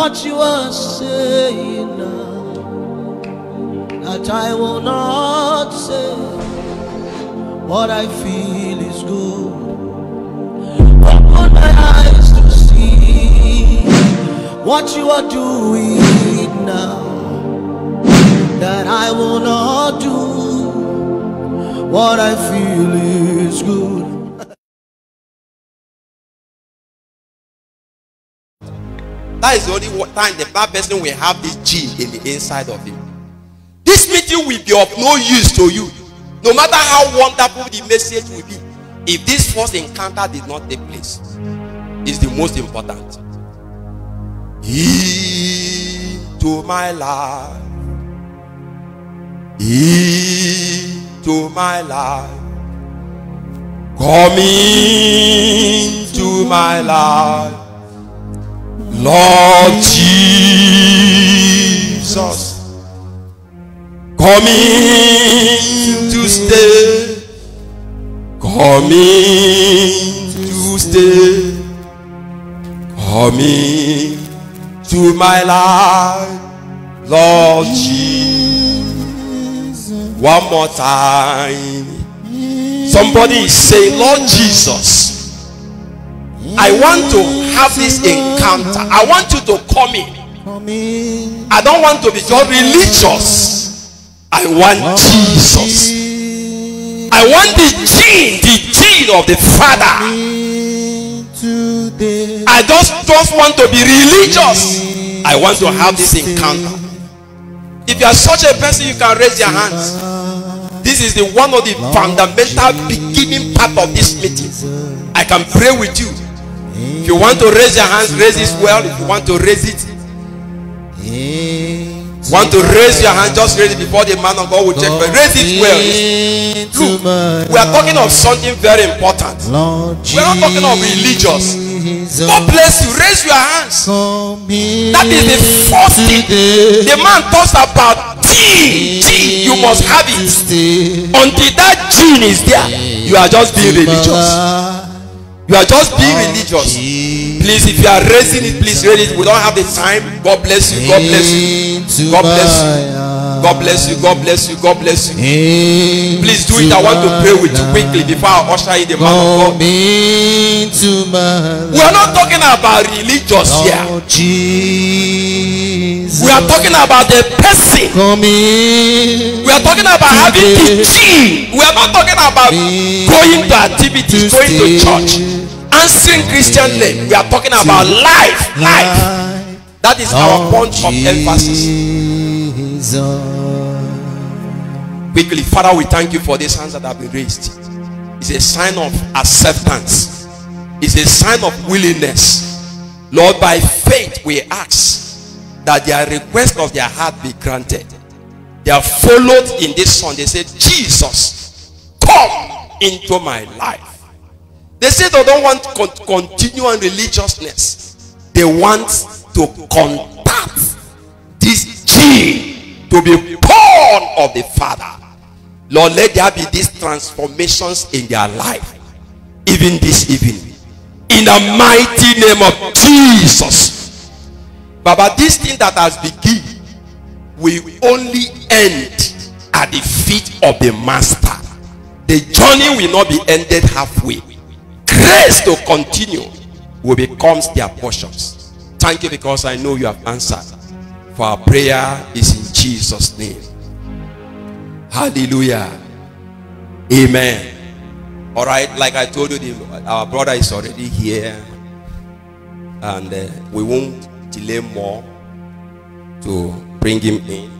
what you are saying now that I will not say what I feel is good. Open my eyes to see what you are doing now that I will not do what I feel is good. That is the only time the bad person will have this gene in the inside of him. This meeting will be of no use to you. No matter how wonderful the message will be, if this first encounter did not take place, is the most important. Into my life, into my life, come into my life. Lord Jesus, coming to stay, coming to stay, coming to my life, Lord Jesus. One more time. Somebody say, Lord Jesus. I want to have this encounter. I want you to come in. I don't want to be just religious. I want Jesus. I want the gene, the gene of the Father. I just don't want to be religious. I want to have this encounter. If you are such a person, you can raise your hands. This is the one of the fundamental beginning part of this meeting. I can pray with you. If you want to raise your hands, raise it well. If you want to raise it, want to raise your hand, just raise it before the man of God will check. But raise it well. Look, we are talking of something very important. We are not talking of religious. God bless you. Raise your hands. That is the first thing. The man talks about G. G. You must have it. Until that gene is there, you are just being religious. You are just being oh, religious. Please, if you are raising it, please raise it. We don't have the time. God bless you. God bless you. God bless you. God bless you. God bless you. God bless you. Please do it. I want to pray with you quickly before I usher in the man of God. We are not talking about religious here. We are talking about the person. We are talking about having the G. We are not talking about going to activities, going to church. unseen Christian name. We are talking about life. Life. That is our point of emphasis. Quickly, Father, we thank you for these hands that have been raised. It's a sign of acceptance, it's a sign of willingness. Lord, by faith, we ask that their request of their heart be granted. They are followed in this song. They say, Jesus, come into my life. They say they don't want con- continual religiousness. They want to contact this gene to be born of the Father. Lord, let there be these transformations in their life, even this evening. In the mighty name of Jesus. Baba, this thing that has begun will only end at the feet of the Master. The journey will not be ended halfway. grace to continue will becomes their portions. Thank you because I know you have answered. For our prayer is in Jesus' name. Hallelujah. Amen. All right, like I told you, the, our brother is already here. And uh, we won't delay more to bring him in.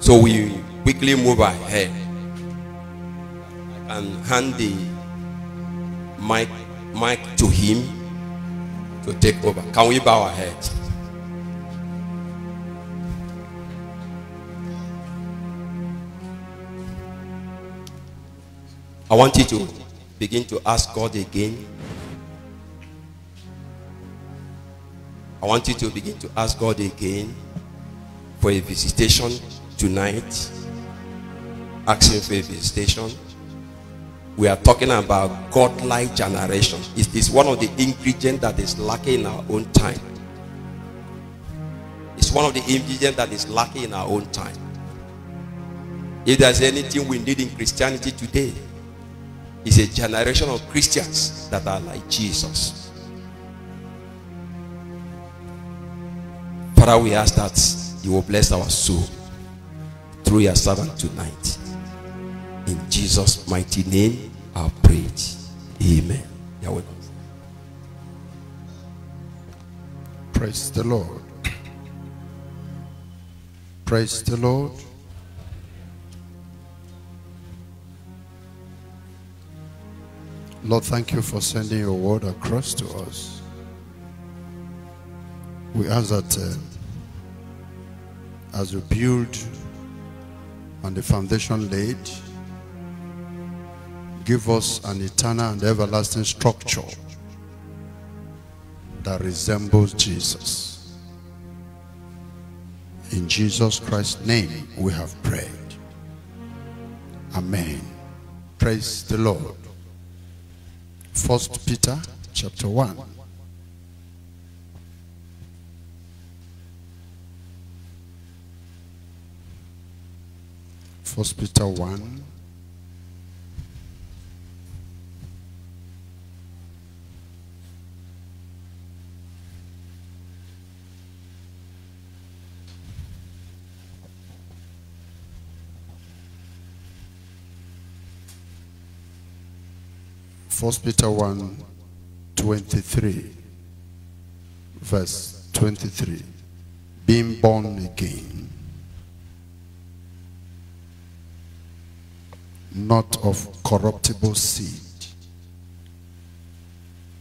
So we quickly move ahead. and hand the mic, mic to him to take over. Can we bow our heads? I want you to begin to ask God again. I want you to begin to ask God again for a visitation tonight. Asking for a visitation. we are talking about godlike generation. It is one of the ingredients that is lacking in our own time. It's one of the ingredients that is lacking in our own time. If there's anything we need in Christianity today, it's a generation of Christians that are like Jesus. Father, we ask that you will bless our soul through your servant tonight. In Jesus' mighty name, I pray. Amen. Praise the Lord. Praise the Lord. Lord, thank you for sending your word across to us. We ask that uh, as we build on the foundation laid, give us an eternal and everlasting structure that resembles Jesus. In Jesus Christ's name we have prayed. Amen. Praise the Lord. First Peter chapter 1. First Peter 1 First Peter 1 23, verse 23. Being born again, not of corruptible seed,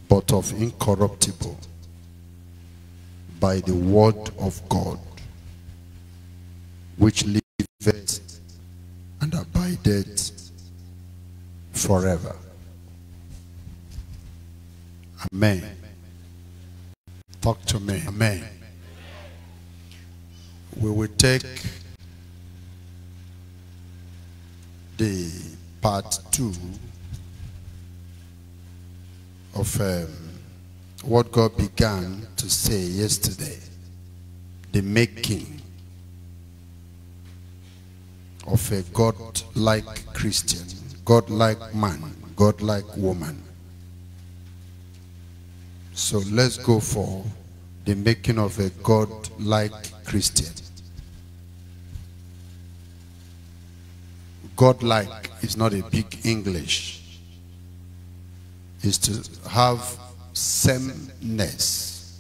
but of incorruptible, by the word of God, which liveth and abideth forever. Amen. Talk to me. Amen. Amen. We will take the part two of um, what God began to say yesterday the making of a God-like Christian, God-like man, God-like woman. So let's go for the making of a God-like Christian. God-like is not a big English. It's to have sameness,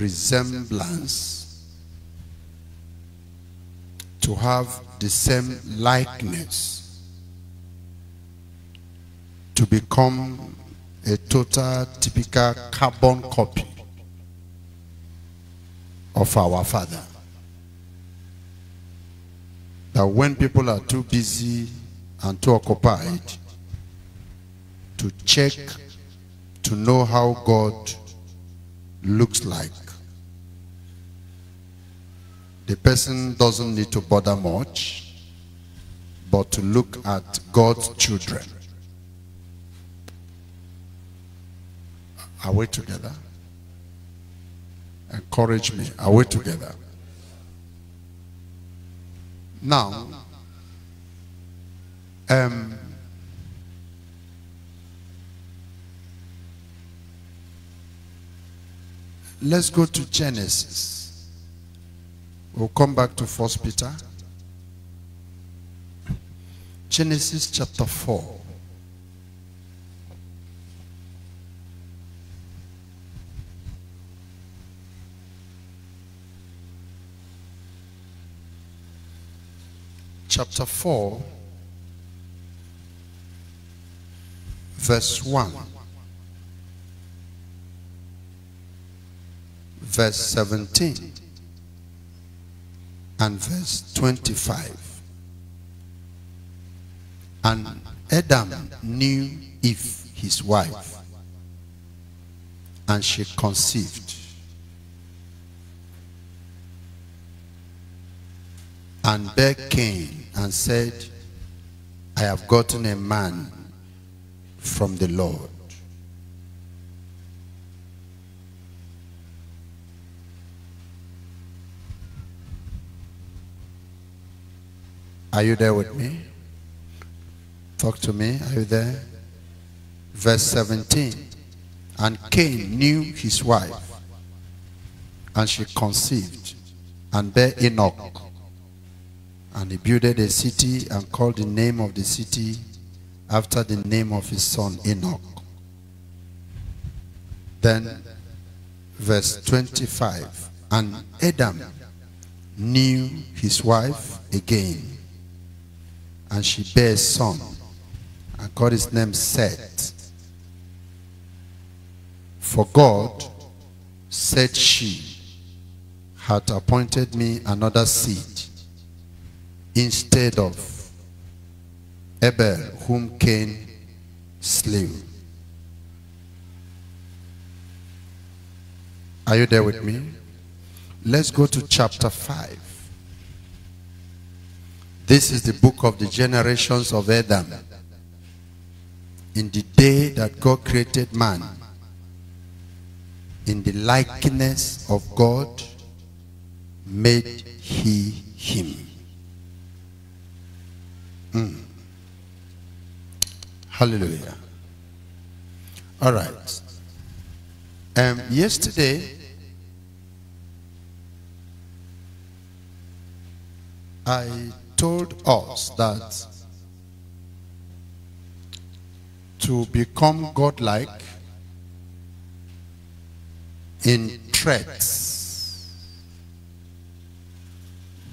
resemblance, to have the same likeness, to become a total typical carbon copy of our father. That when people are too busy and too occupied to check, to know how God looks like, the person doesn't need to bother much, but to look at God's children Are we together? Encourage me. Are we together? Now, um, let's go to Genesis. We'll come back to First Peter. Genesis chapter 4. chapter 4, verse 1, verse 17, and verse 25. And Adam knew if his wife, and she conceived. And bare Cain and said, I have gotten a man from the Lord. Are you there with me? Talk to me. Are you there? Verse 17. And Cain knew his wife, and she conceived and bare Enoch. And he builded a city and called the name of the city after the name of his son Enoch. Then, verse 25 And Adam knew his wife again, and she bare a son, and called his name Seth. For God, said she, hath appointed me another seed instead of Abel, whom Cain slew. Are you there with me? Let's go to chapter 5. This is the book of the generations of Adam. In the day that God created man, in the likeness of God, made he him. Mm. Hallelujah. All right. Um, yesterday, I told us that to become godlike in threats,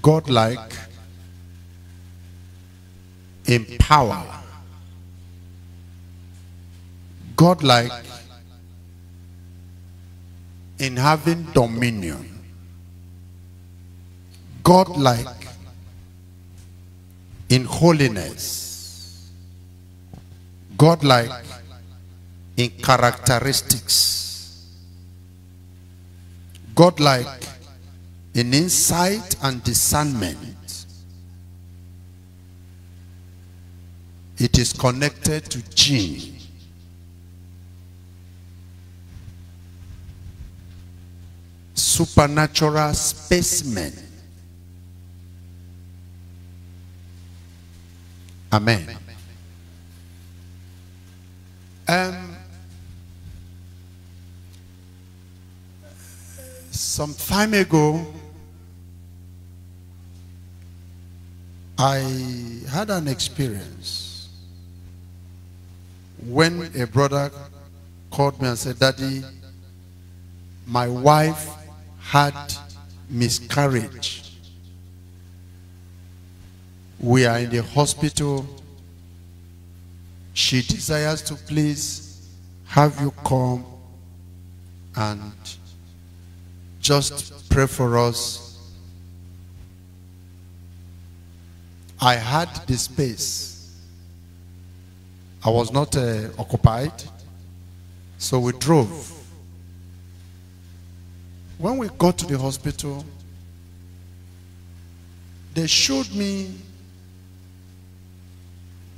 godlike in power. Godlike in having dominion. Godlike in holiness. Godlike in characteristics. Godlike in insight and discernment. It is connected to gene. Supernatural specimen. Amen. Um, some time ago, I had an experience when a brother called me and said, Daddy, my wife had miscarriage. We are in the hospital. She desires to please have you come and just pray for us. I had the space I was not uh, occupied, so we drove. When we got to the hospital, they showed me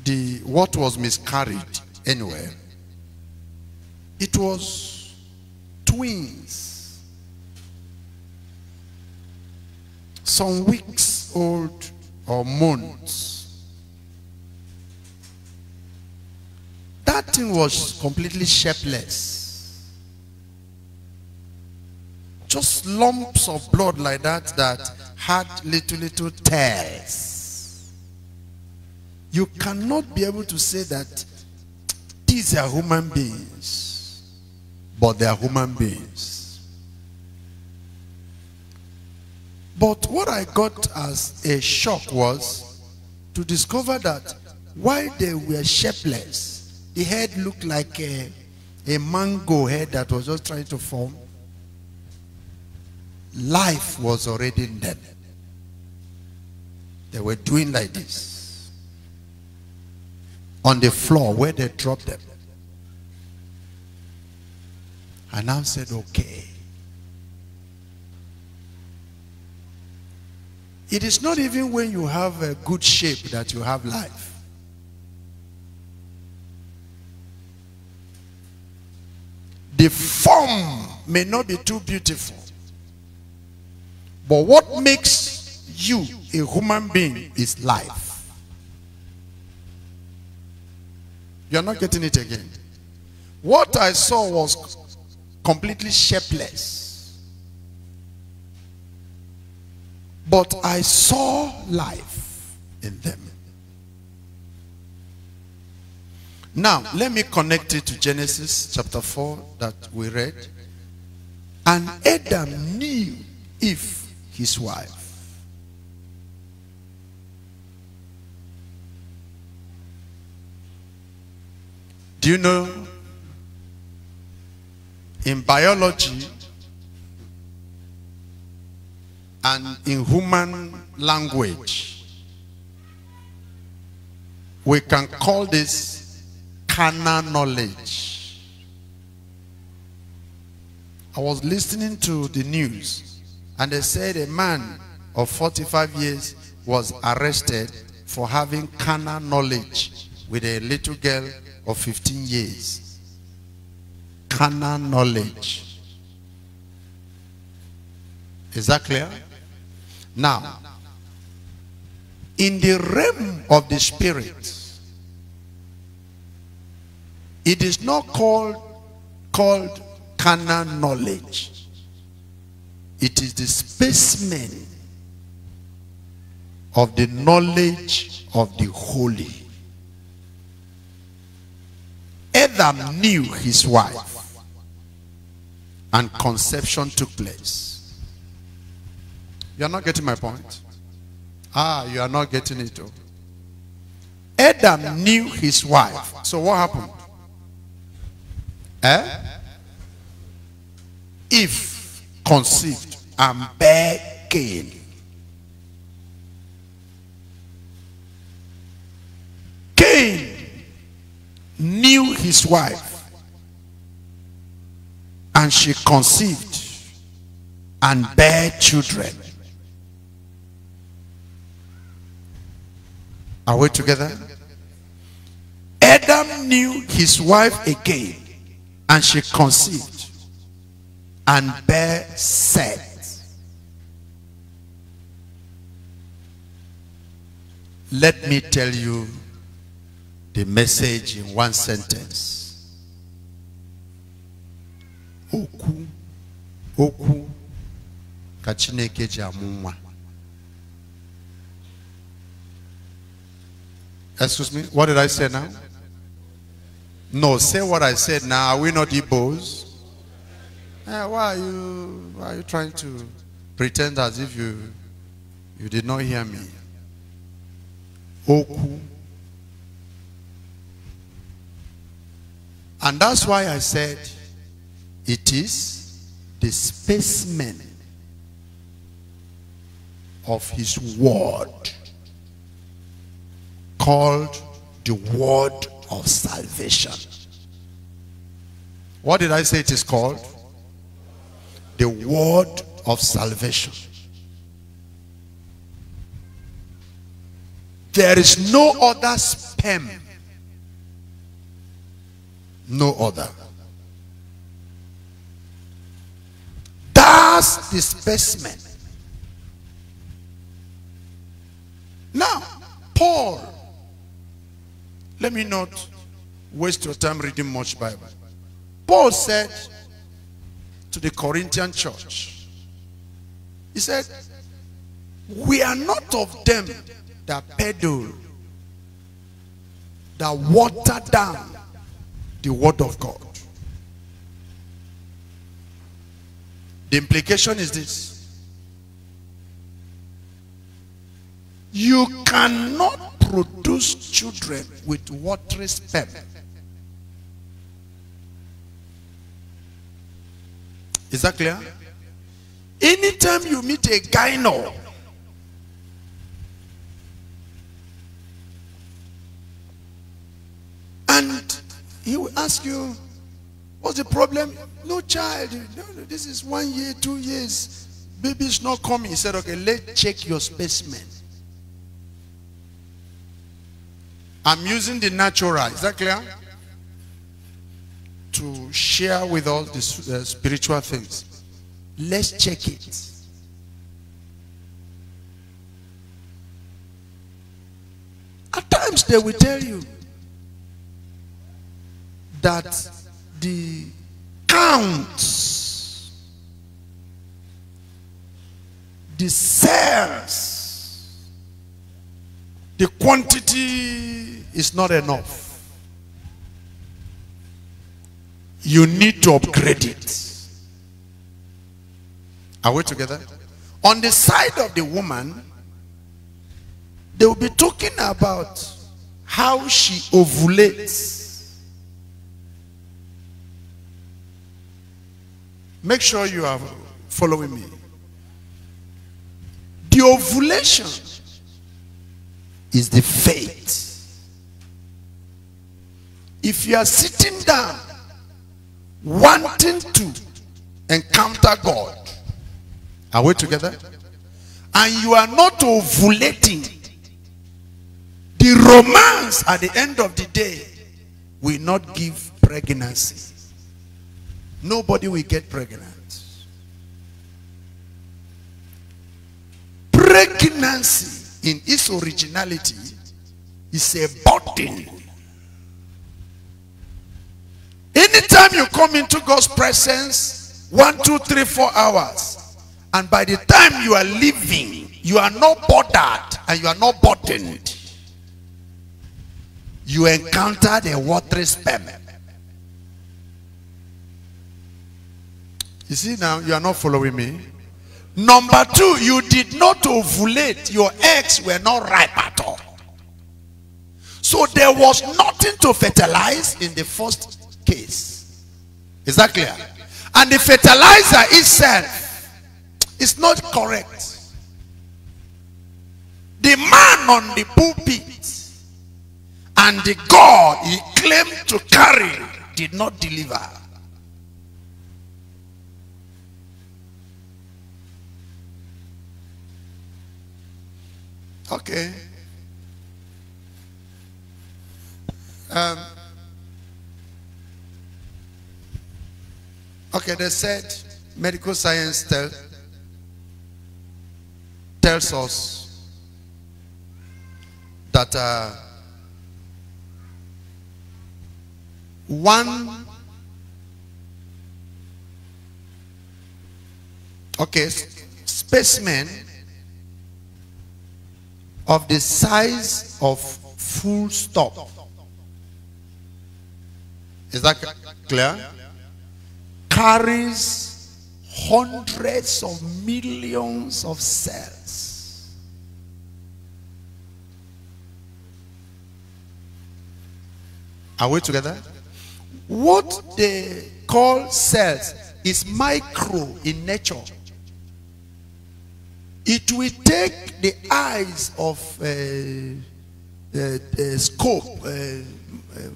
the what was miscarried anyway. It was twins, some weeks old or months. that thing was completely shapeless. Just lumps of blood like that that had little, little tails. You cannot be able to say that these are human beings, but they are human beings. But what I got as a shock was to discover that while they were shapeless, the head looked like a, a mango head that was just trying to form. Life was already dead. They were doing like this. On the floor where they dropped them. And I said, okay. It is not even when you have a good shape that you have life. The form may not be too beautiful. But what makes you a human being is life. You're not getting it again. What I saw was completely shapeless. But I saw life in them. Now, let me connect it to Genesis chapter 4 that we read. And Adam knew if his wife. Do you know? In biology and in human language, we can call this carnal knowledge. I was listening to the news and they said a man of 45 years was arrested for having carnal knowledge with a little girl of 15 years. Carnal knowledge. Is that clear? Now, in the realm of the spirit, it is not called called carnal knowledge. It is the specimen of the knowledge of the holy. Adam knew his wife and conception took place. You are not getting my point? Ah, you are not getting it. Adam knew his wife. So what happened? Eh? If conceived and bear Cain. Cain knew his wife and she conceived and bare children. Are we together? Adam knew his wife again and she conceived and bare Seth. Let me tell you the message in one sentence. Oku, oku, kachineke jamuma. Excuse me, what did I say now? No, say what I said now. Are we not Igbos? Eh, why are you why are you trying to pretend as if you you did not hear me? Oku. And that's why I said it is the spacemen of his word called the word of salvation. What did I say it is called? The word of salvation. There is no other sperm. No other. That's the specimen. Now, Paul let me not waste your time reading much Bible. Paul said to the Corinthian church, he said, we are not of them that peddle, that water down the word of God. The implication is this. You cannot produce children with watery sperm. Is that clear? Anytime you meet a gyno, and he will ask you, what's the problem? No child. No, no, this is one year, two years. Baby's not coming. He said, okay, let's check your specimen. I'm using the natural, is that clear? To share with all the uh, spiritual things. Let's check it. At times they will tell you that the counts, the sales. The quantity is not enough. You need to upgrade it. Are we together? On the side of the woman, they will be talking about how she ovulates. Make sure you are following me. The ovulation is the faith. If you are sitting down wanting to encounter God, are we together? And you are not ovulating, the romance at the end of the day will not give pregnancy. Nobody will get pregnant. Pregnancy in its originality is a burden. Anytime you come into God's presence, one, two, three, four hours, and by the time you are leaving, you are not bothered and you are not burdened. You encountered a watery sperm. You see now, you are not following me. Number two, you did not ovulate. Your eggs were not ripe at all. So there was nothing to fertilize in the first case. Is that clear? And the fertilizer itself is not correct. The man on the pulpit and the God he claimed to carry did not deliver. Okay. Um, okay, they said medical science tell, tells us that uh, one okay specimen of the size of full stop. Is that clear? Carries hundreds of millions of cells. Are we together? What they call cells is micro in nature. It will take the eyes of uh, scope, uh, uh,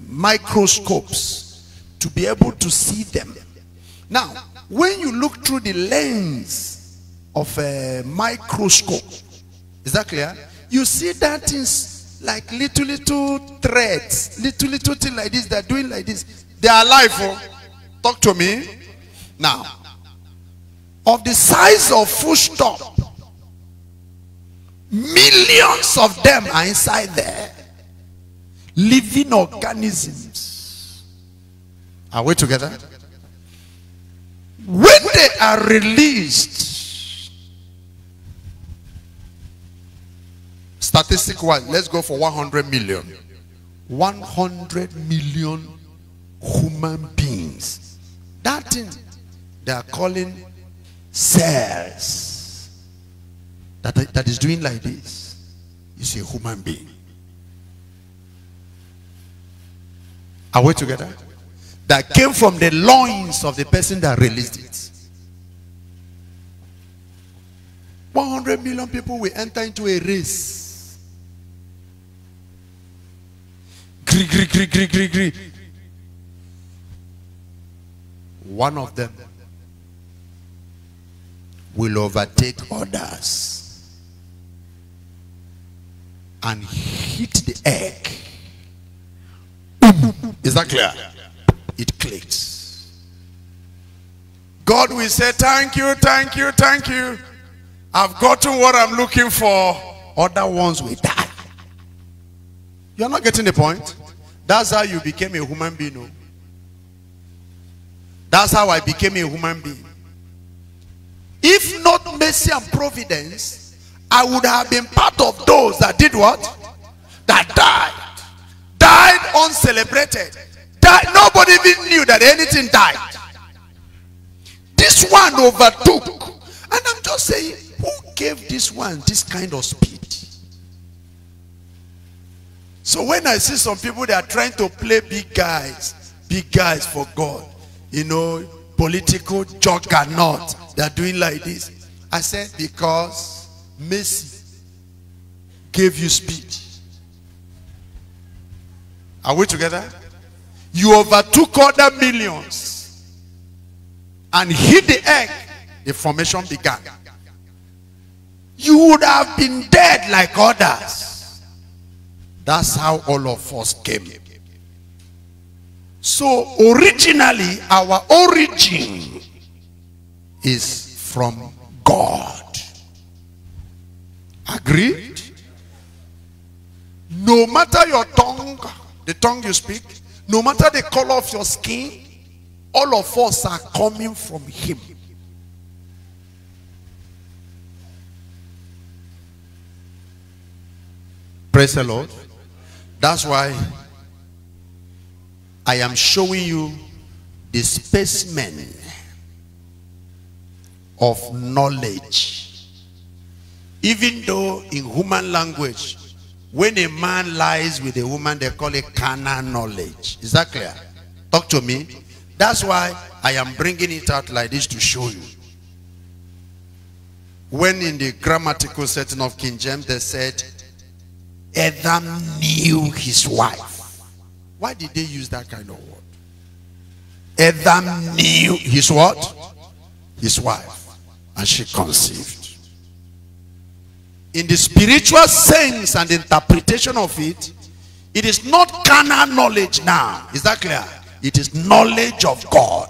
microscopes, to be able to see them. Now, when you look through the lens of a microscope, is that clear? You see that is like little, little threads, little, little thing like this, they're doing like this. They are alive. Oh. Talk to me. Now, of the size of full stop, Millions of them are inside there. Living organisms. Are we together? When they are released, statistic wise, let's go for 100 million. 100 million human beings. That thing they are calling cells that, that is doing like this is a human being. Are we together? That came from the loins of the person that released it. 100 million people will enter into a race. Gree, gree, gree, gree, gree, gree. One of them will overtake others and hit the egg. Is that clear? It clicks. God will say, Thank you, thank you, thank you. I've gotten what I'm looking for. Other ones will die. You're not getting the point. That's how you became a human being. No? Oh. That's how I became a human being. If not mercy and providence, I would have been part of those that did what? That died. Died uncelebrated. Died. Nobody even knew that anything died. This one overtook. And I'm just saying, who gave this one this kind of speed? So when I see some people that are trying to play big guys, big guys for God, you know, political juggernaut, they're doing like this. I said, because Messi gave you speed. Are we together? You overtook other millions and hit the egg. The formation began. You would have been dead like others. That's how all of us came. So originally, our origin is from God. Agreed? No matter your tongue, the tongue you speak, no matter the color of your skin, all of us are coming from him. Praise the Lord. That's why I am showing you the specimen of knowledge even though in human language, when a man lies with a woman, they call it carnal knowledge. Is that clear? Talk to me. That's why I am bringing it out like this to show you. When in the grammatical setting of King James, they said, Adam knew his wife. Why did they use that kind of word? Adam knew his what? His wife. And she conceived in the spiritual sense and interpretation of it, it is not carnal knowledge now. Is that clear? It is knowledge of God.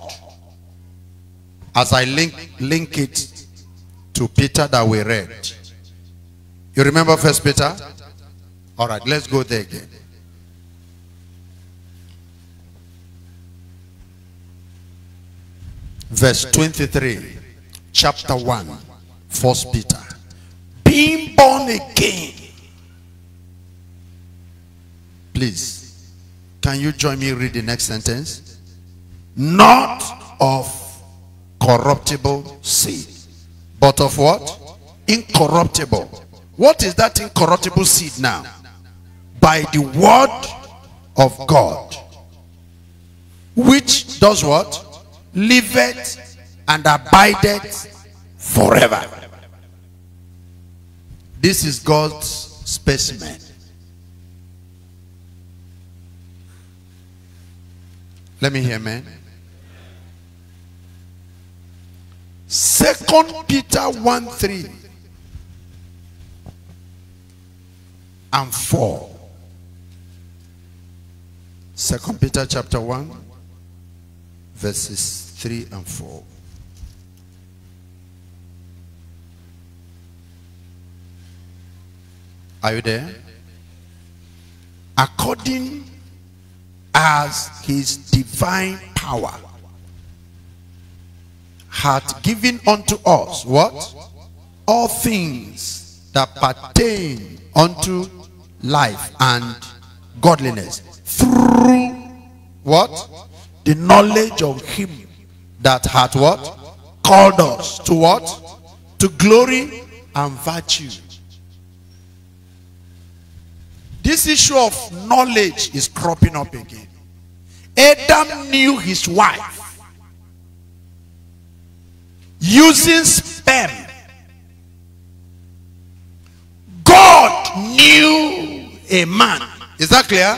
As I link, link it to Peter that we read. You remember First Peter? All right, let's go there again. Verse 23, chapter 1, First Peter being born again. Please, can you join me read the next sentence? Not of corruptible seed, but of what? Incorruptible. What is that incorruptible seed now? By the word of God, which does what? Liveth and abideth forever. This is God's specimen. Let me hear, man. Second Peter 1 3 and 4. Second Peter chapter 1, verses 3 and 4. Are you there? According as his divine power hath given unto us what? All things that pertain unto life and godliness through what? The knowledge of him that hath what? Called us to what? To glory and virtue this issue of knowledge is cropping up again. Adam knew his wife using sperm. God knew a man. Is that clear?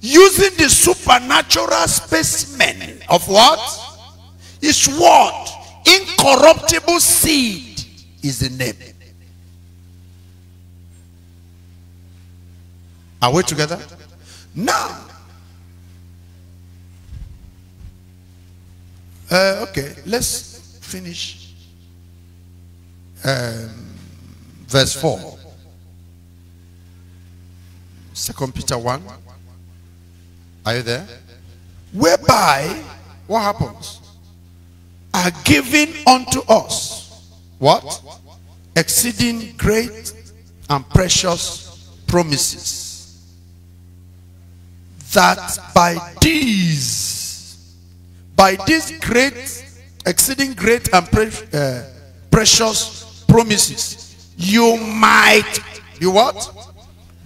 Using the supernatural specimen of what? His word. Incorruptible seed is the name. Are we together? Now, uh, okay, let's finish um, verse 4. Second Peter 1. Are you there? Whereby, what happens? Are given unto us what? Exceeding great and precious promises that by these, by these great, exceeding great and pre uh, precious promises, you might be what?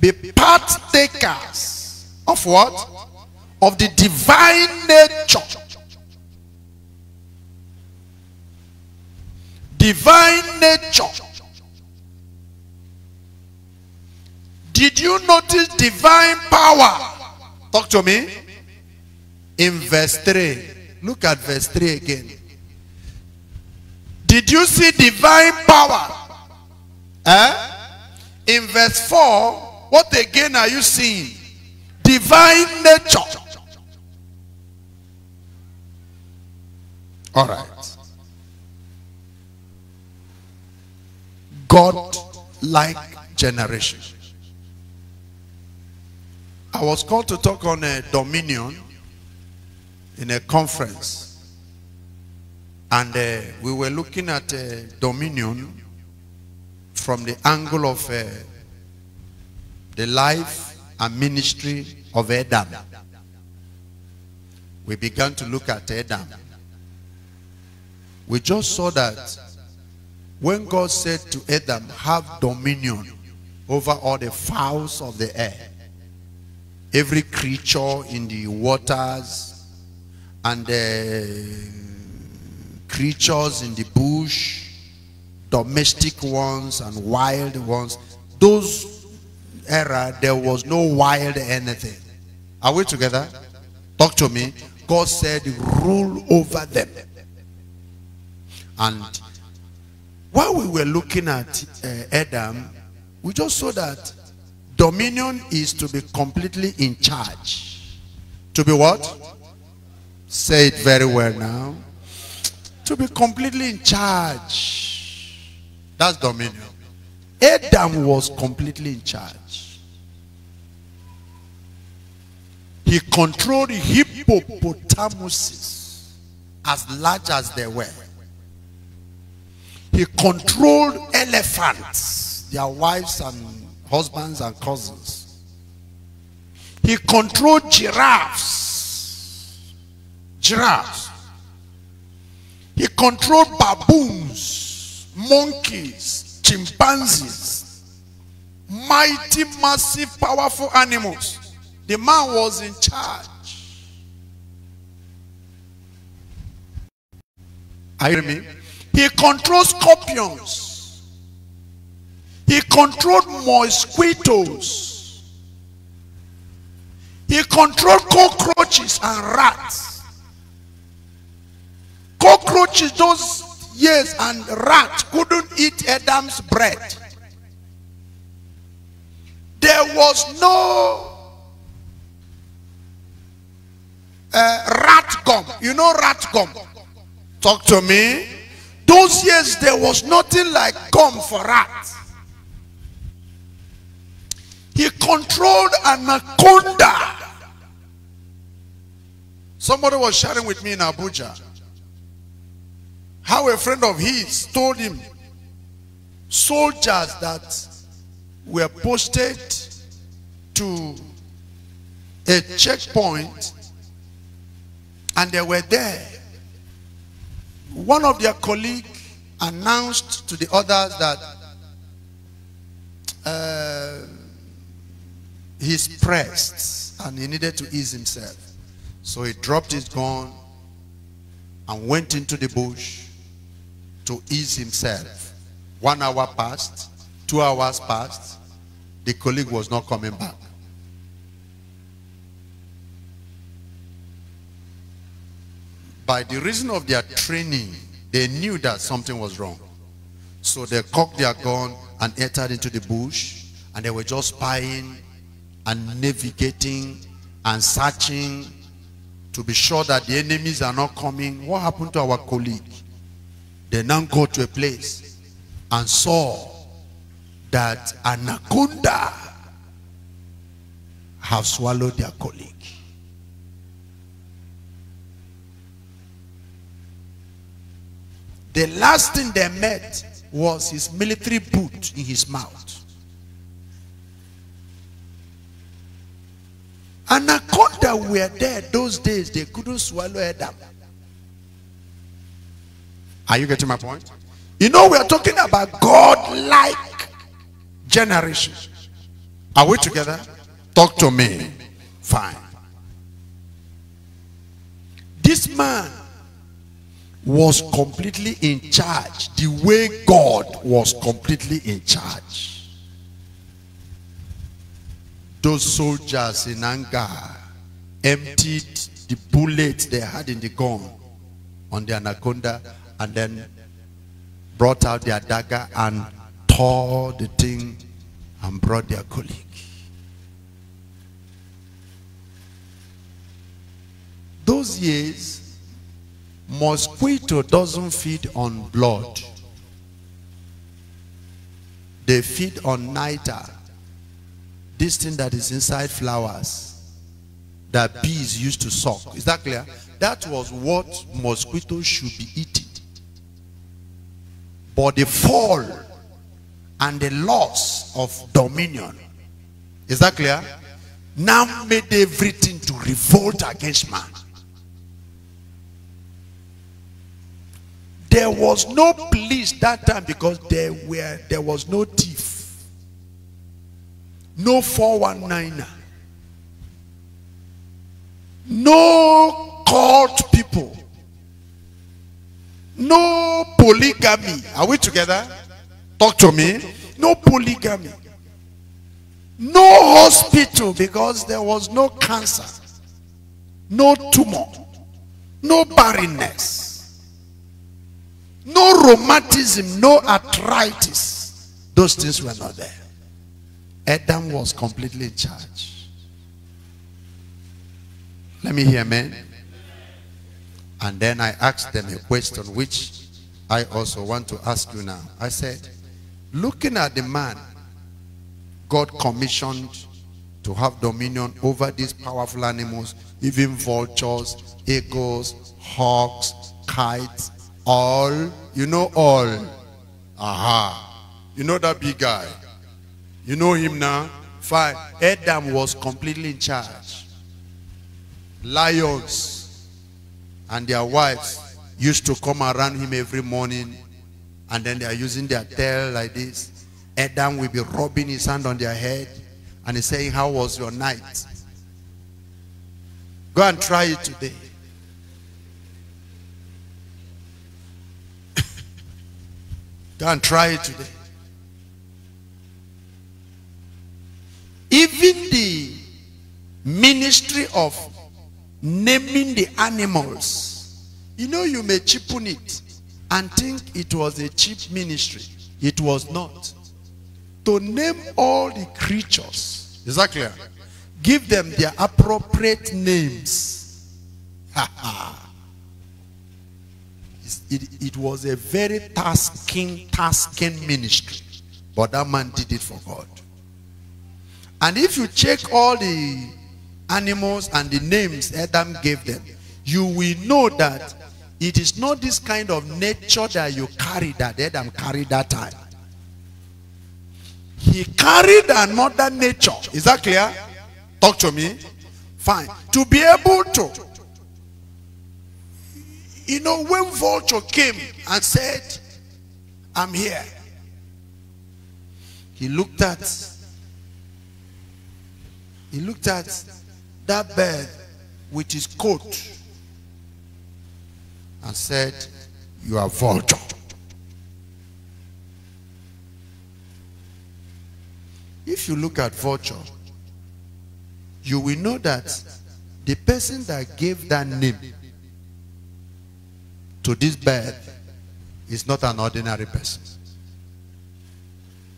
Be partakers of what? Of the divine nature. Divine nature. Did you notice divine power? Talk to me. In verse 3. Look at verse 3 again. Did you see divine power? Eh? In verse 4, what again are you seeing? Divine nature. All right. God like generation. I was called to talk on a dominion in a conference. And uh, we were looking at uh, dominion from the angle of uh, the life and ministry of Adam. We began to look at Adam. We just saw that when God said to Adam, have dominion over all the fowls of the air every creature in the waters and the creatures in the bush, domestic ones and wild ones. Those era, there was no wild anything. Are we together? Talk to me. God said, rule over them. And while we were looking at uh, Adam, we just saw that Dominion is to be completely in charge. To be what? Say it very well now. To be completely in charge. That's dominion. Adam was completely in charge. He controlled hippopotamuses as large as they were. He controlled elephants, their wives and husbands and cousins. He controlled giraffes. Giraffes. He controlled baboons, monkeys, chimpanzees, mighty, massive, powerful animals. The man was in charge. Are you hearing me? He controls scorpions. He controlled mosquitoes. He controlled cockroaches and rats. Cockroaches those years and rats couldn't eat Adam's bread. There was no uh, rat gum. You know rat gum? Talk to me. Those years there was nothing like gum for rats. He controlled anaconda. Somebody was sharing with me in Abuja how a friend of his told him soldiers that were posted to a checkpoint and they were there. One of their colleagues announced to the others that uh, he's pressed and he needed to ease himself. So he dropped his gun and went into the bush to ease himself. One hour passed, two hours passed, the colleague was not coming back. By the reason of their training, they knew that something was wrong. So they cocked their gun and entered into the bush and they were just spying and navigating and searching to be sure that the enemies are not coming. What happened to our colleague? They now go to a place and saw that anaconda have swallowed their colleague. The last thing they met was his military boot in his mouth. Anaconda were there those days, they couldn't swallow Adam. Are you getting my point? You know, we are talking about God like generation. Are we together? Talk to me. Fine. This man was completely in charge the way God was completely in charge those soldiers in anger emptied the bullets they had in the gun on the anaconda and then brought out their dagger and tore the thing and brought their colleague. Those years, mosquito doesn't feed on blood. They feed on nitre this thing that is inside flowers that bees used to suck. Is that clear? That was what mosquitoes should be eating. But the fall and the loss of dominion. Is that clear? Now made everything to revolt against man. There was no police that time because there were there was no tea. No 419er. No court people. No polygamy. Are we together? Talk to me. No polygamy. No hospital because there was no cancer. No tumor. No barrenness. No rheumatism, no arthritis. Those things were not there. Adam was completely in charge. Let me hear man. And then I asked them a question which I also want to ask you now. I said, looking at the man God commissioned to have dominion over these powerful animals, even vultures, eagles, hawks, kites, all. You know all. Aha. You know that big guy. You know him now? Five. Adam was completely in charge. Lions and their wives used to come around him every morning and then they are using their tail like this. Adam will be rubbing his hand on their head and he's saying, how was your night? Go and try it today. Go and try it today. Even the ministry of naming the animals. You know, you may cheapen it and think it was a cheap ministry. It was not. To name all the creatures. Is that clear? Give them their appropriate names. it, it was a very tasking, tasking ministry. But that man did it for God. And if you check all the animals and the names Adam gave them, you will know that it is not this kind of nature that you carry that Adam carried that time. He carried another nature. Is that clear? Talk to me. Fine. To be able to, you know, when vulture came and said, I'm here, he looked at he looked at that bird with his coat and said, You are vulture. If you look at vulture, you will know that the person that gave that name to this bird is not an ordinary person.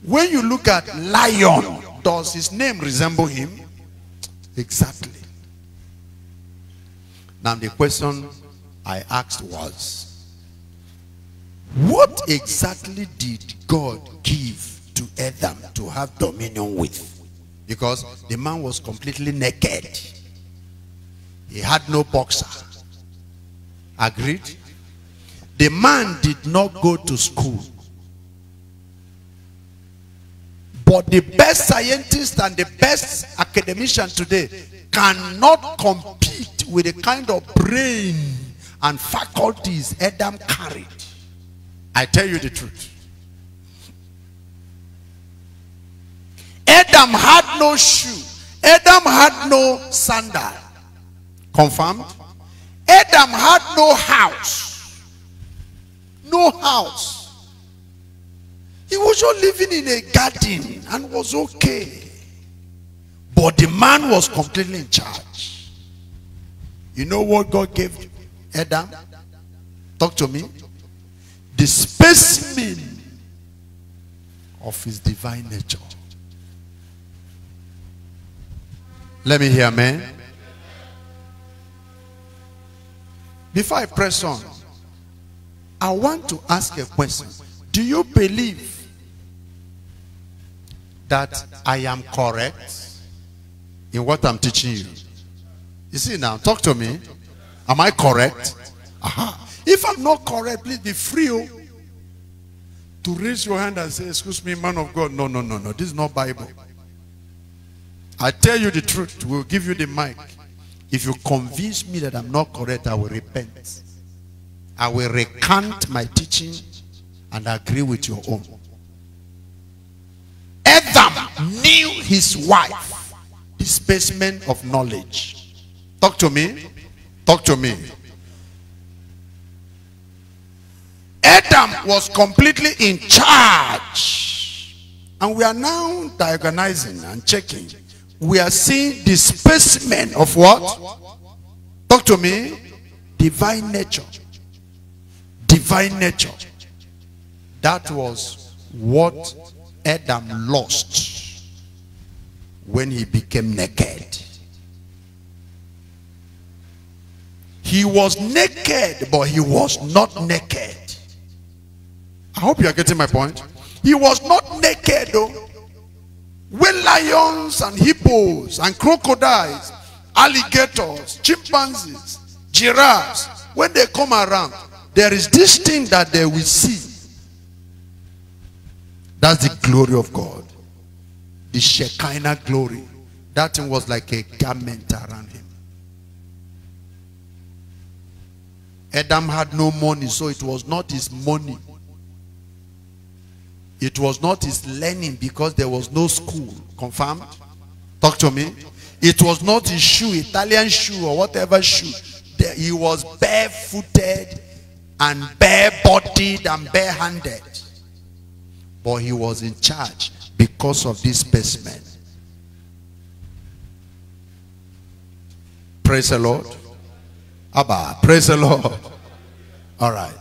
When you look at lion, does his name resemble him? Exactly. Now the question I asked was, what exactly did God give to Adam to have dominion with? Because the man was completely naked. He had no boxer. Agreed? The man did not go to school. But the best scientist and the best academician today cannot compete with the kind of brain and faculties Adam carried. I tell you the truth. Adam had no shoe. Adam had no sandal. Confirmed? Adam had no house. No house. He was just living in a garden and was okay. But the man was completely in charge. You know what God gave Adam? Talk to me. The specimen of his divine nature. Let me hear man. Before I press on, I want to ask a question. Do you believe that I am correct in what I'm teaching you. You see now, talk to me. Am I correct? Aha. If I'm not correct, please be free oh. to raise your hand and say, excuse me, man of God. No, no, no, no. This is not Bible. I tell you the truth. We'll give you the mic. If you convince me that I'm not correct, I will repent. I will recant my teaching and agree with your own. Adam knew his wife, Displacement of knowledge. Talk to me. Talk to me. Adam was completely in charge. And we are now diagonizing and checking. We are seeing displacement of what? Talk to me. Divine nature. Divine nature. That was what Adam lost when he became naked. He was naked, but he was not naked. I hope you are getting my point. He was not naked, though. When lions and hippos and crocodiles, alligators, chimpanzees, giraffes, when they come around, there is this thing that they will see that's the glory of God. The Shekinah glory. That thing was like a garment around him. Adam had no money, so it was not his money. It was not his learning because there was no school. Confirmed? Talk to me. It was not his shoe, Italian shoe or whatever shoe. He was barefooted and bare-bodied and bare-handed. But he was in charge because of this specimen. Praise the Lord. Abba, praise the Lord. All right.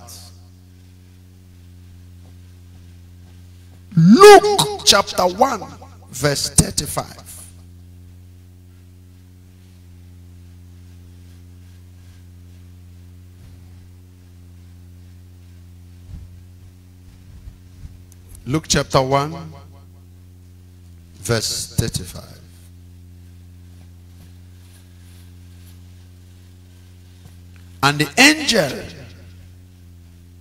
Luke chapter 1, verse 35. Luke chapter 1, verse 35. And the angel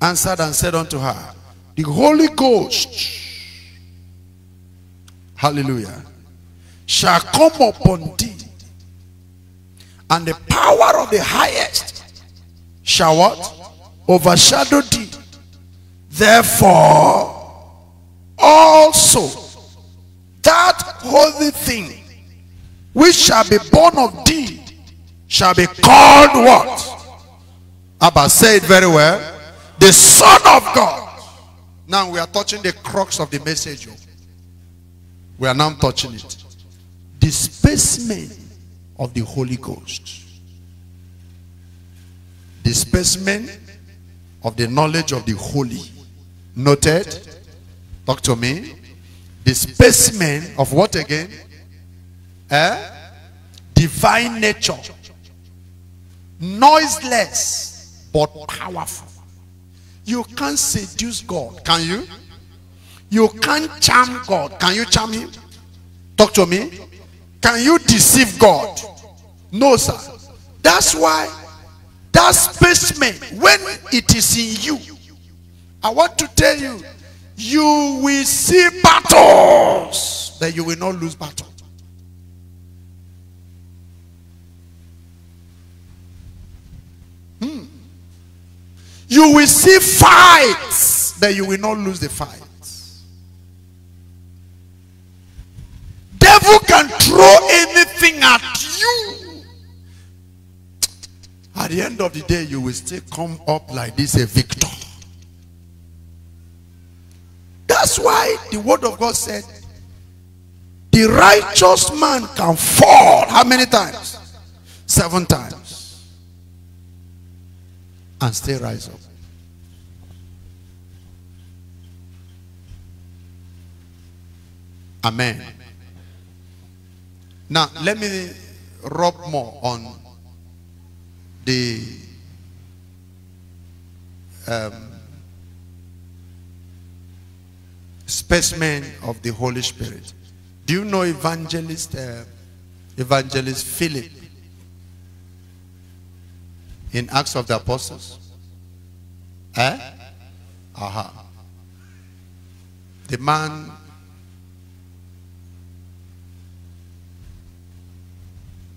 answered and said unto her, The Holy Ghost, hallelujah, shall come upon thee, and the power of the highest shall what? Overshadow thee. Therefore, also that holy thing which shall be born of thee shall be called what? Abba said very well. The Son of God. Now we are touching the crux of the message. Oh. We are now touching it. The specimen of the Holy Ghost. The specimen of the knowledge of the holy. Noted? Talk to me. The specimen of what again? Eh? Divine nature. Noiseless, but powerful. You can't seduce God, can you? You can't charm God. Can you charm him? Talk to me. Can you deceive God? No, sir. That's why that specimen, when it is in you, I want to tell you you will see battles, but you will not lose battle. Hmm. You will see fights, but you will not lose the fight. devil can throw anything at you. At the end of the day, you will still come up like this a victor. That's why the word of God said, the righteous man can fall. How many times? Seven times. And still rise up. Amen. Now, let me rub more on the um, specimen of the Holy Spirit. Do you know evangelist uh, evangelist Philip in Acts of the Apostles? Eh? Aha. The man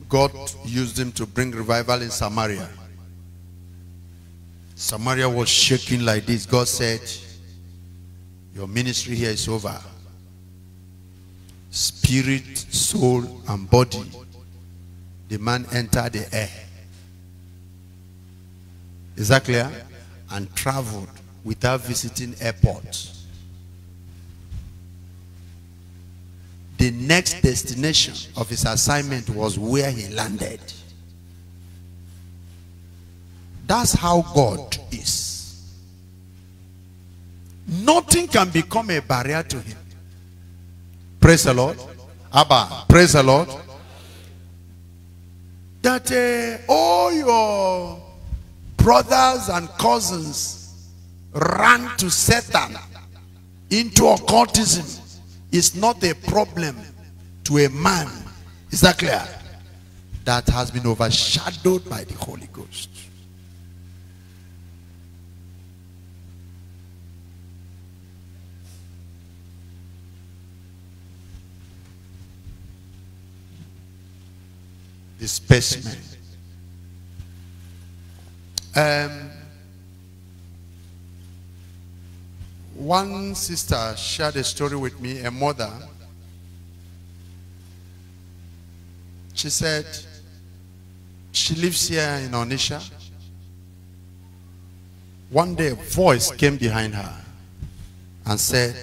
God used him to bring revival in Samaria. Samaria was shaking like this. God said, your ministry here is over. Spirit, soul, and body. The man entered the air. Is that clear? And traveled without visiting airports. The next destination of his assignment was where he landed. That's how God is. Nothing can become a barrier to him. Praise the Lord. Abba, praise the Lord. That uh, all your brothers and cousins ran to Satan into occultism is not a problem to a man. Is that clear? That has been overshadowed by the Holy Ghost. disbursement. Um, one sister shared a story with me, a mother. She said she lives here in Onisha. One day a voice came behind her and said,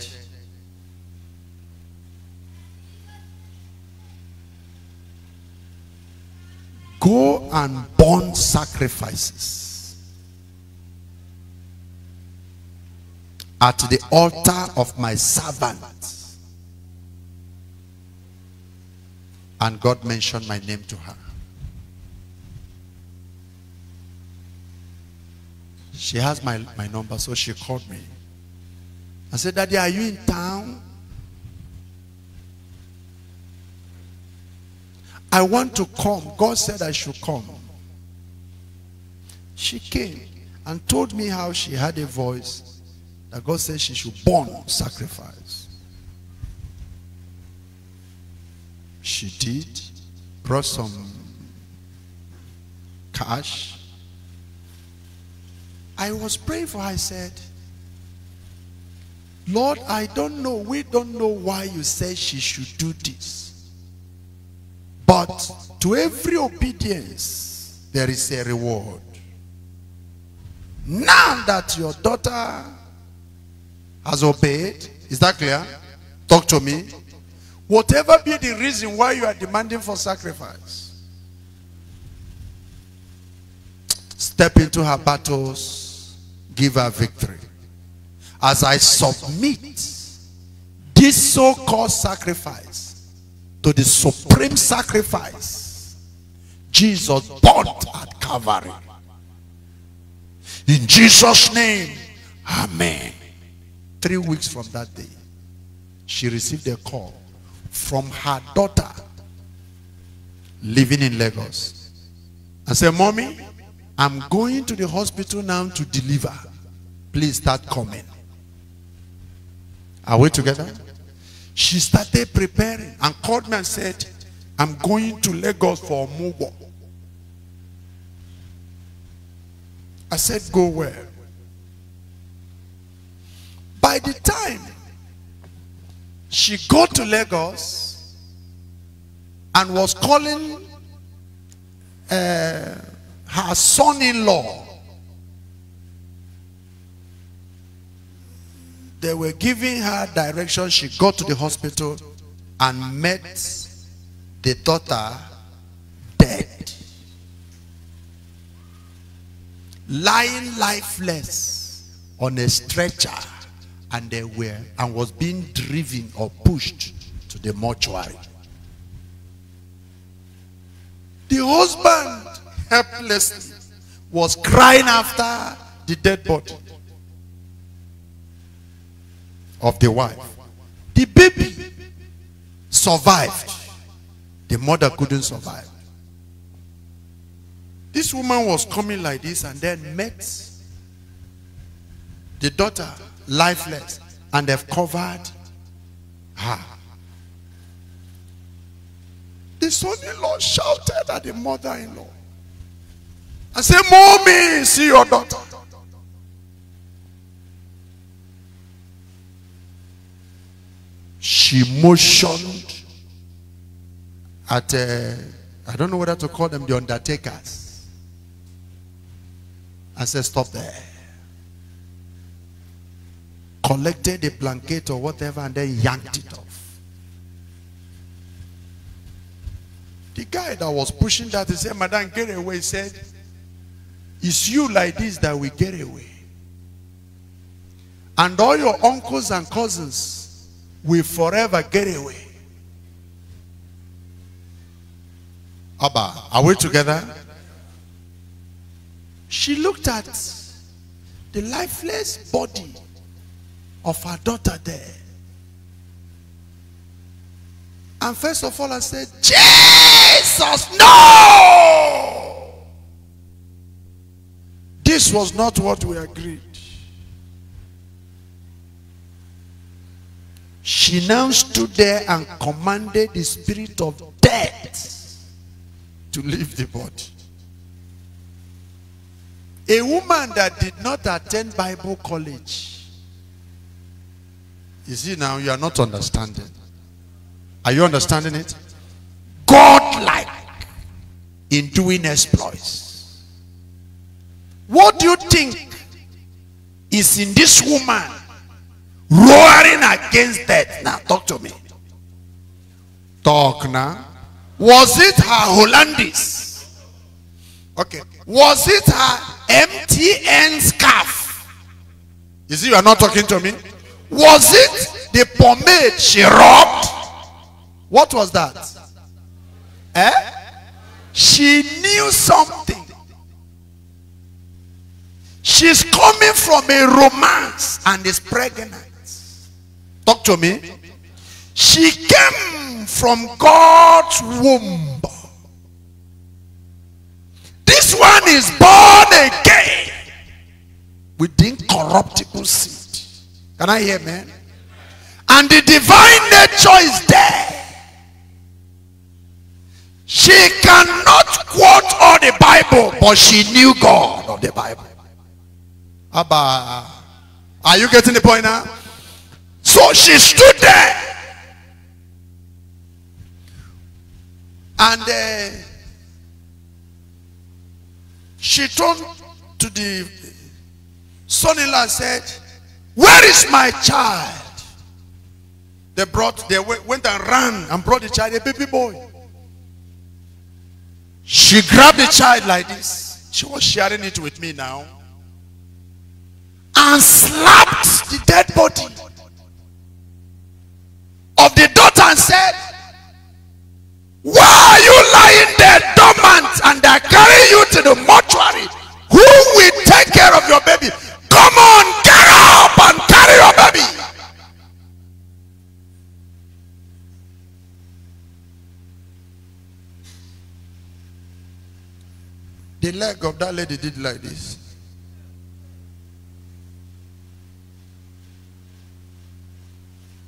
Go and burn sacrifices at the altar of my servant. And God mentioned my name to her. She has my, my number, so she called me. I said, Daddy, are you in town? I want to come. God said I should come. She came and told me how she had a voice that God said she should burn sacrifice. She did, brought some cash. I was praying for her. I said, Lord, I don't know. We don't know why you said she should do this. But to every obedience, there is a reward. Now that your daughter has obeyed, is that clear? Talk to me. Whatever be the reason why you are demanding for sacrifice, step into her battles, give her victory. As I submit this so-called sacrifice, to the supreme sacrifice Jesus bought at Calvary. In Jesus' name, Amen. Three weeks from that day, she received a call from her daughter living in Lagos. I said, Mommy, I'm going to the hospital now to deliver. Please start coming. Are we together? She started preparing and called me and said, I'm going to Lagos for Mugo. I said, go where? By the time she got to Lagos and was calling uh, her son-in-law They were giving her direction. She got to the hospital and met the daughter dead. Lying lifeless on a stretcher and they were and was being driven or pushed to the mortuary. The husband helplessly was crying after the dead body of the wife. The baby survived. The mother couldn't survive. This woman was coming like this and then met the daughter lifeless and they've covered her. The son-in-law shouted at the mother-in-law and said, Mommy, see your daughter. she motioned at, uh, I don't know whether to call them the undertakers, and said, Stop there. Collected a blanket or whatever and then yanked it off. The guy that was pushing that, he said, Madam, get away. He said, It's you like this that we get away. And all your uncles and cousins will forever get away. Abba, are we together? She looked at the lifeless body of her daughter there. And first of all, I said, Jesus, no! This was not what we agreed. She now stood there and commanded the spirit of death to leave the body. A woman that did not attend Bible college. You see now, you are not understanding. Are you understanding it? God-like in doing exploits. What do you think is in this woman roaring against death. Now, talk to me. Talk now. Was it her Hollandis? Okay. Was it her MTN scarf? You see, you are not talking to me. Was it the pomade she robbed? What was that? Eh? She knew something. She's coming from a romance and is pregnant. Talk to me. She came from God's womb. This one is born again with the incorruptible seed. Can I hear, man? And the divine nature is there. She cannot quote all the Bible, but she knew God of the Bible. Abba. Are you getting the point now? So she stood there. And uh, she turned to the son-in-law and said, where is my child? They brought, they went and ran and brought the child, a baby boy. She grabbed the child like this. She was sharing it with me now. And slapped the dead body of the daughter and said, Why are you lying there dormant and I carry you to the mortuary? Who will take care of your baby? Come on, get up and carry your baby. The leg of that lady did like this.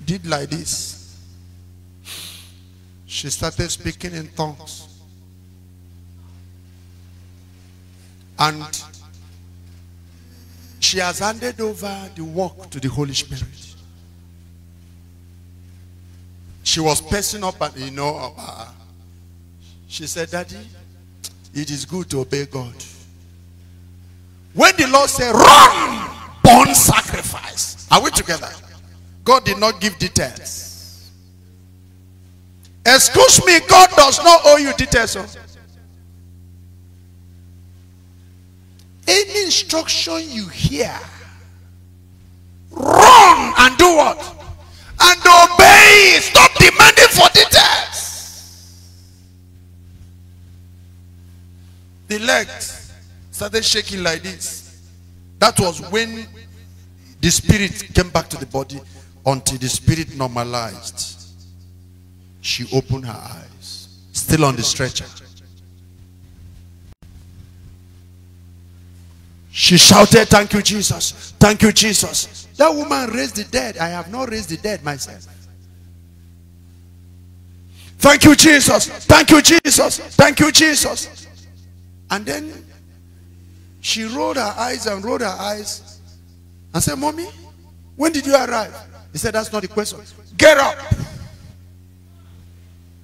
Did like this she started speaking in tongues. And she has handed over the work to the Holy Spirit. She was pacing up and, you know, uh, uh, she said, Daddy, it is good to obey God. When the Lord said, run, born sacrifice. Are we together? God did not give details. Excuse me, God does not owe you details. Of. Oh. Any instruction you hear, run and do what? And obey. Stop demanding for details. The legs started shaking like this. That was when the spirit came back to the body until the spirit normalized. she opened her eyes, still on the stretcher. She shouted, Thank you, Jesus. Thank you, Jesus. That woman raised the dead. I have not raised the dead myself. Thank you, Jesus. Thank you, Jesus. Thank you, Jesus. And then she rolled her eyes and rolled her eyes and said, Mommy, when did you arrive? He said, That's not the question. Get up.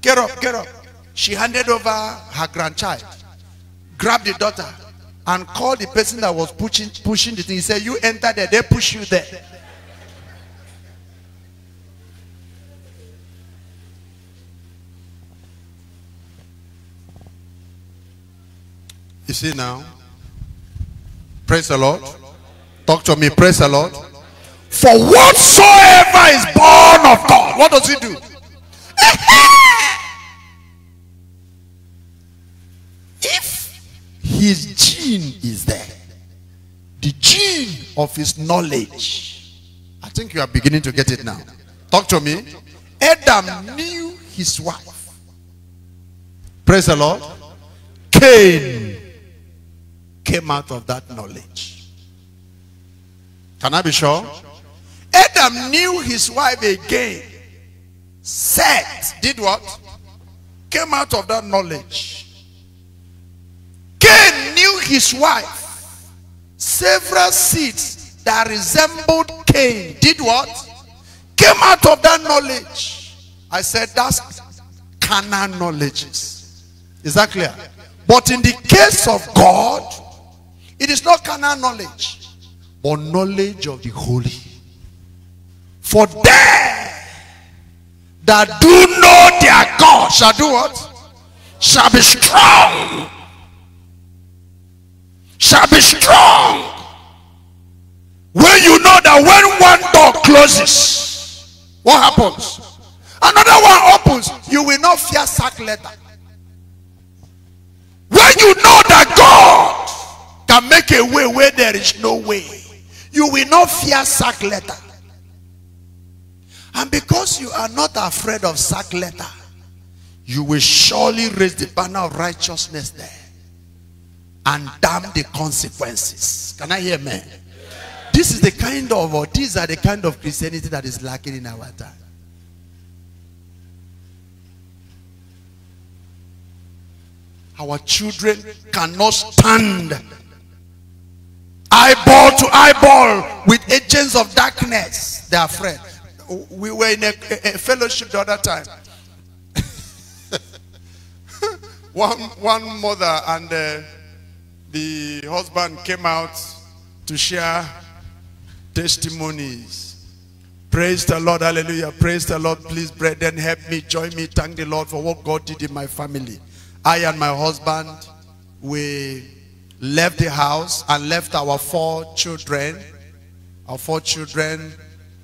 Get up, get up. She handed over her grandchild, grabbed the daughter, and called the person that was pushing, pushing the thing. He said, you enter there, they push you there. You see now? Praise the Lord. Talk to me. Praise the Lord. For whatsoever is born of God. What does he do? if his gene is there, the gene of his knowledge, I think you are beginning to get it now. Talk to me. Adam knew his wife. Praise the Lord. Cain came out of that knowledge. Can I be sure? Adam knew his wife again Set did what? Came out of that knowledge. Cain knew his wife. Several seeds that resembled Cain did what? Came out of that knowledge. I said that's carnal knowledge. Is that clear? But in the case of God, it is not carnal knowledge, but knowledge of the holy. For there that do know their God shall do what? Shall be strong. Shall be strong. When you know that when one door closes, what happens? Another one opens, you will not fear sack later. When you know that God can make a way where there is no way, you will not fear sack later. And because you are not afraid of sack letter, you will surely raise the banner of righteousness there and damn the consequences. Can I hear me? This is the kind of, or these are the kind of Christianity that is lacking in our time. Our children cannot stand eyeball to eyeball with agents of darkness. They are afraid we were in a, a, a fellowship the other time. one, one mother and uh, the husband came out to share testimonies. Praise the Lord, hallelujah. Praise the Lord, please, brethren, help me, join me, thank the Lord for what God did in my family. I and my husband, we left the house and left our four children, our four children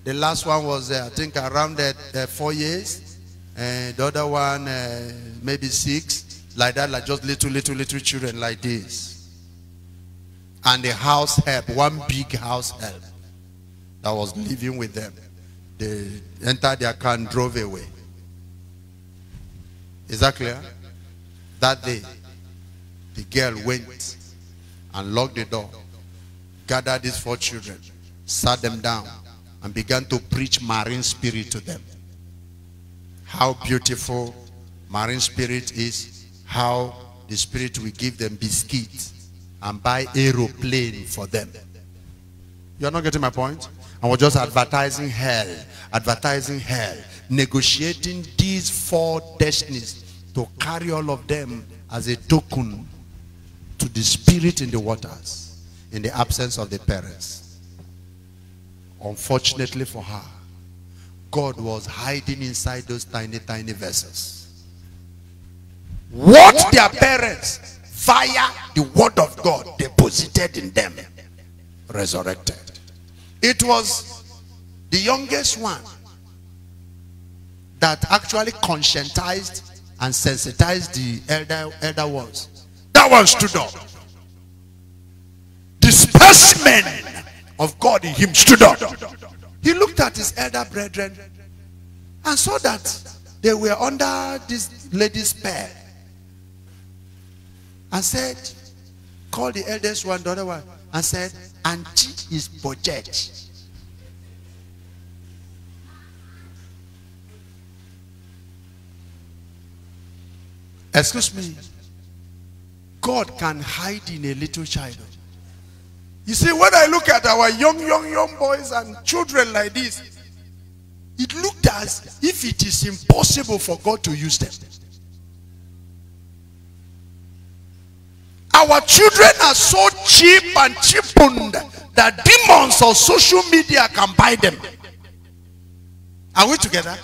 the last one was, uh, I think, around uh, uh four years. and the other one, uh, maybe six. Like that, like just little, little, little children like this. And the house help, one big house help that was living with them. They entered their car and drove away. Is that clear? That day, the girl went and locked the door, gathered these four children, sat them down, and began to preach marine spirit to them. How beautiful marine spirit is, how the spirit will give them biscuits and buy aeroplane for them. You're not getting my point? I was just advertising hell, advertising hell, negotiating these four destinies to carry all of them as a token to the spirit in the waters in the absence of the parents. Unfortunately for her, God was hiding inside those tiny, tiny vessels. What their parents, via the word of God, deposited in them, resurrected. It was the youngest one that actually conscientized and sensitized the elder, elder ones. That one stood up. The specimen of God in him stood up. He looked at his elder brethren and saw that they were under this lady's spell and said, Call the eldest one, the other one, and said, Auntie is budget. Excuse me. God can hide in a little child. You see, when I look at our young, young, young boys and children like this, it looked as if it is impossible for God to use them. Our children are so cheap and cheapened that demons of social media can buy them. Are we together?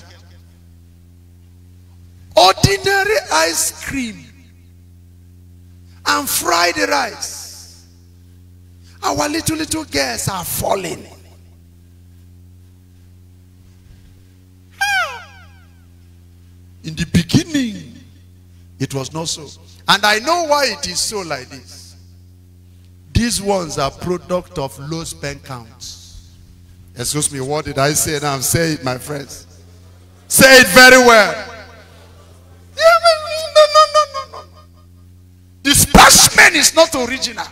Ordinary ice cream and fried rice Our little, little girls are falling. Ah! In the beginning, it was not so. And I know why it is so like this. These ones are product of low spend counts. Excuse me, what did I say now? Say it, my friends. Say it very well. No, no, no, no, no. The specimen is not original.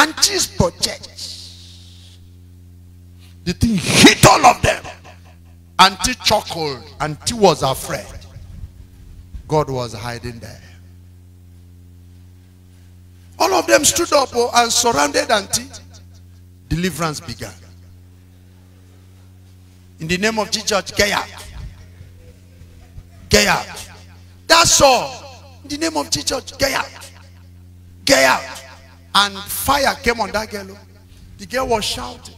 Auntie's for church. The thing hit all of them. Auntie chuckled. Auntie was afraid. God was hiding there. All of them stood up oh, and surrounded Auntie. Deliverance began. In the name of Jesus, get out. Get out. That's all. In the name of Jesus, get out. Get out. And fire came on that girl. Oh. The girl was shouting.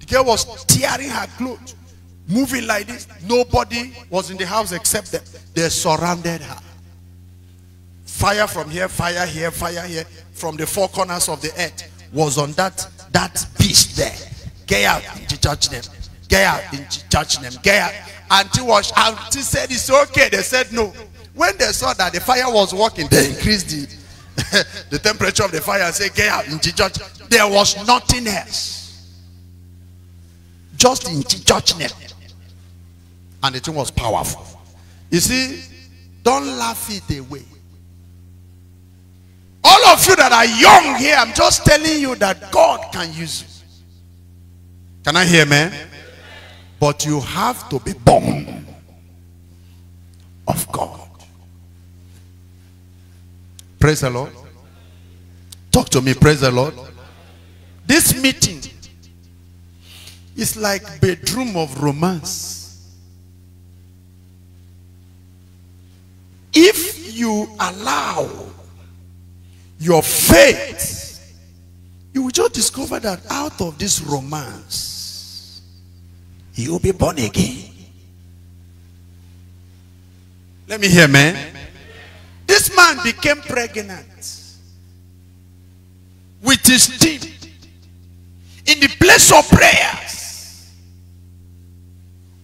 The girl was tearing her clothes. Moving like this. Nobody was in the house except them. They surrounded her. Fire from here, fire here, fire here. From the four corners of the earth was on that, that beast there. Get out in Jesus' name. Get out in Jesus' name. Get out. Auntie, was, auntie said it's okay. They said no. When they saw that the fire was working, they increased it. The, the temperature of the fire and say, Get out. There was nothing else. Just in judgment. And the thing was powerful. You see, don't laugh it away. All of you that are young here, I'm just telling you that God can use you. Can I hear man? But you have to be born of God. Praise the Lord. Talk to me. Praise the Lord. This meeting is like bedroom of romance. If you allow your faith, you will just discover that out of this romance, you will be born again. Let me hear, man. This man became pregnant with his team in the place of prayers,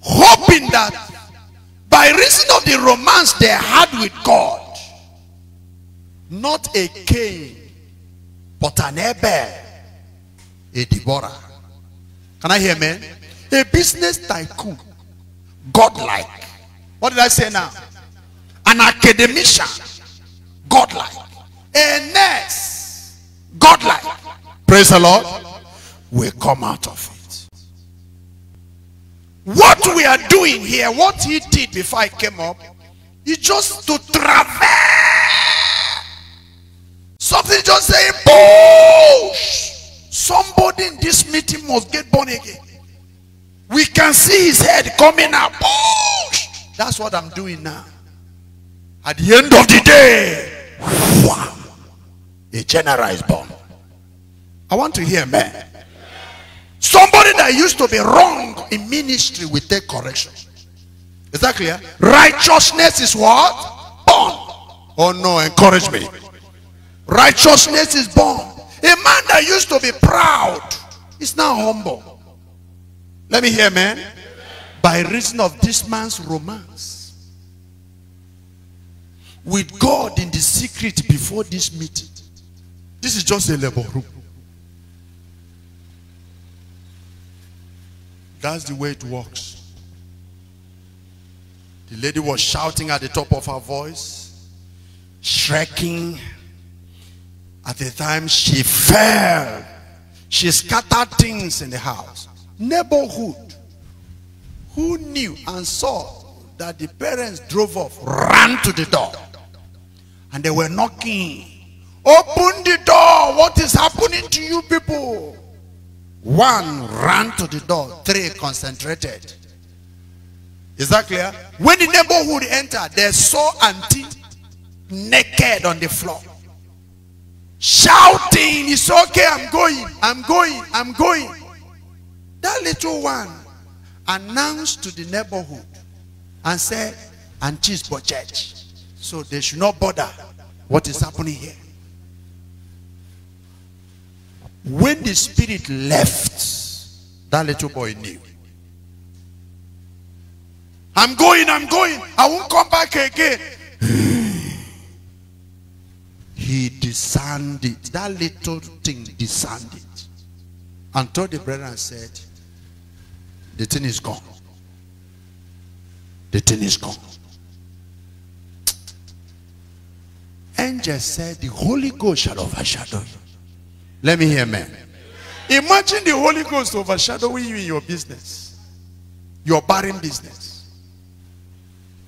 hoping that by reason of the romance they had with God, not a Cain, but an Abel, a Deborah. Can I hear men, A business tycoon, godlike. What did I say now? An academician Godlike. A nurse, Godlike. Praise the Lord. We come out of it. What we are doing here, what he did before I came up, is just to travel. Something just saying, push. Somebody in this meeting must get born again. We can see his head coming up. Push. That's what I'm doing now. At the end of the day, a general is born. I want to hear man. Somebody that used to be wrong in ministry will take correction. Is that clear? Righteousness is what? Born. Oh no, encourage me. Righteousness is born. A man that used to be proud is now humble. Let me hear, man. By reason of this man's romance with God in the secret before this meeting. This is just a labor room. That's the way it works. The lady was shouting at the top of her voice, shrieking. At the time she fell, she scattered things in the house. Neighborhood, who knew and saw that the parents drove off, ran to the door. And they were knocking. Open the door. What is happening to you people? One ran to the door. Three concentrated. Is that clear? When the neighborhood entered, they saw auntie naked on the floor. Shouting, it's okay, I'm going, I'm going, I'm going. That little one announced to the neighborhood and said, Auntie's for church. So they should not bother what is happening here. When the spirit left, that little boy knew. I'm going, I'm going. I won't come back again. he discerned it. That little thing discerned it. And told the brethren and said, the thing is gone. The thing is gone. angel said, The Holy Ghost shall overshadow you. Let me hear man. Imagine the Holy Ghost overshadowing you in your business, your barren business.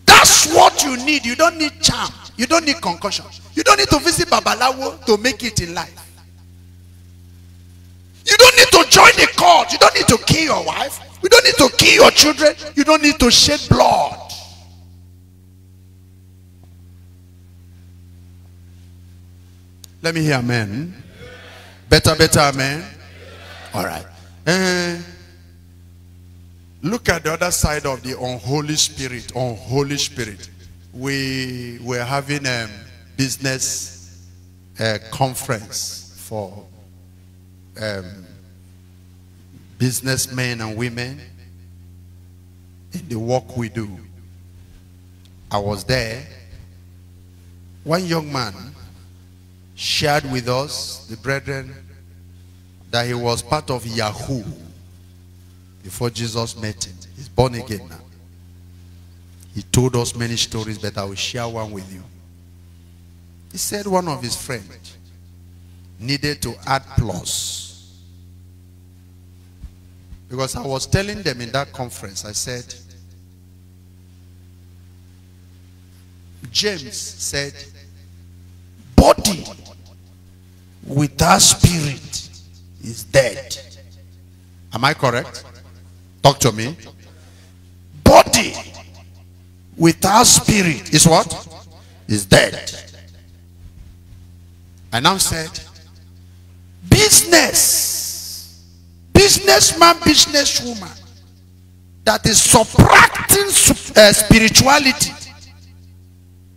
That's what you need. You don't need charm. You don't need concussion. You don't need to visit Babalawo to make it in life. You don't need to join the cult. You don't need to kill your wife. You don't need to kill your children. You don't need to shed blood. Let me hear amen. Better, better amen. All right. Eh, look at the other side of the unholy spirit. Unholy spirit. We were having a um, business uh, conference for um, businessmen and women in the work we do. I was there. One young man shared with us, the brethren, that he was part of Yahoo before Jesus met him. He's born again now. He told us many stories, but I will share one with you. He said one of his friends needed to add plus. Because I was telling them in that conference, I said, James said, body without spirit is dead. Am I correct? Talk to me. Body without spirit is what? Is dead. I now said, business, businessman, businesswoman that is subtracting uh, spirituality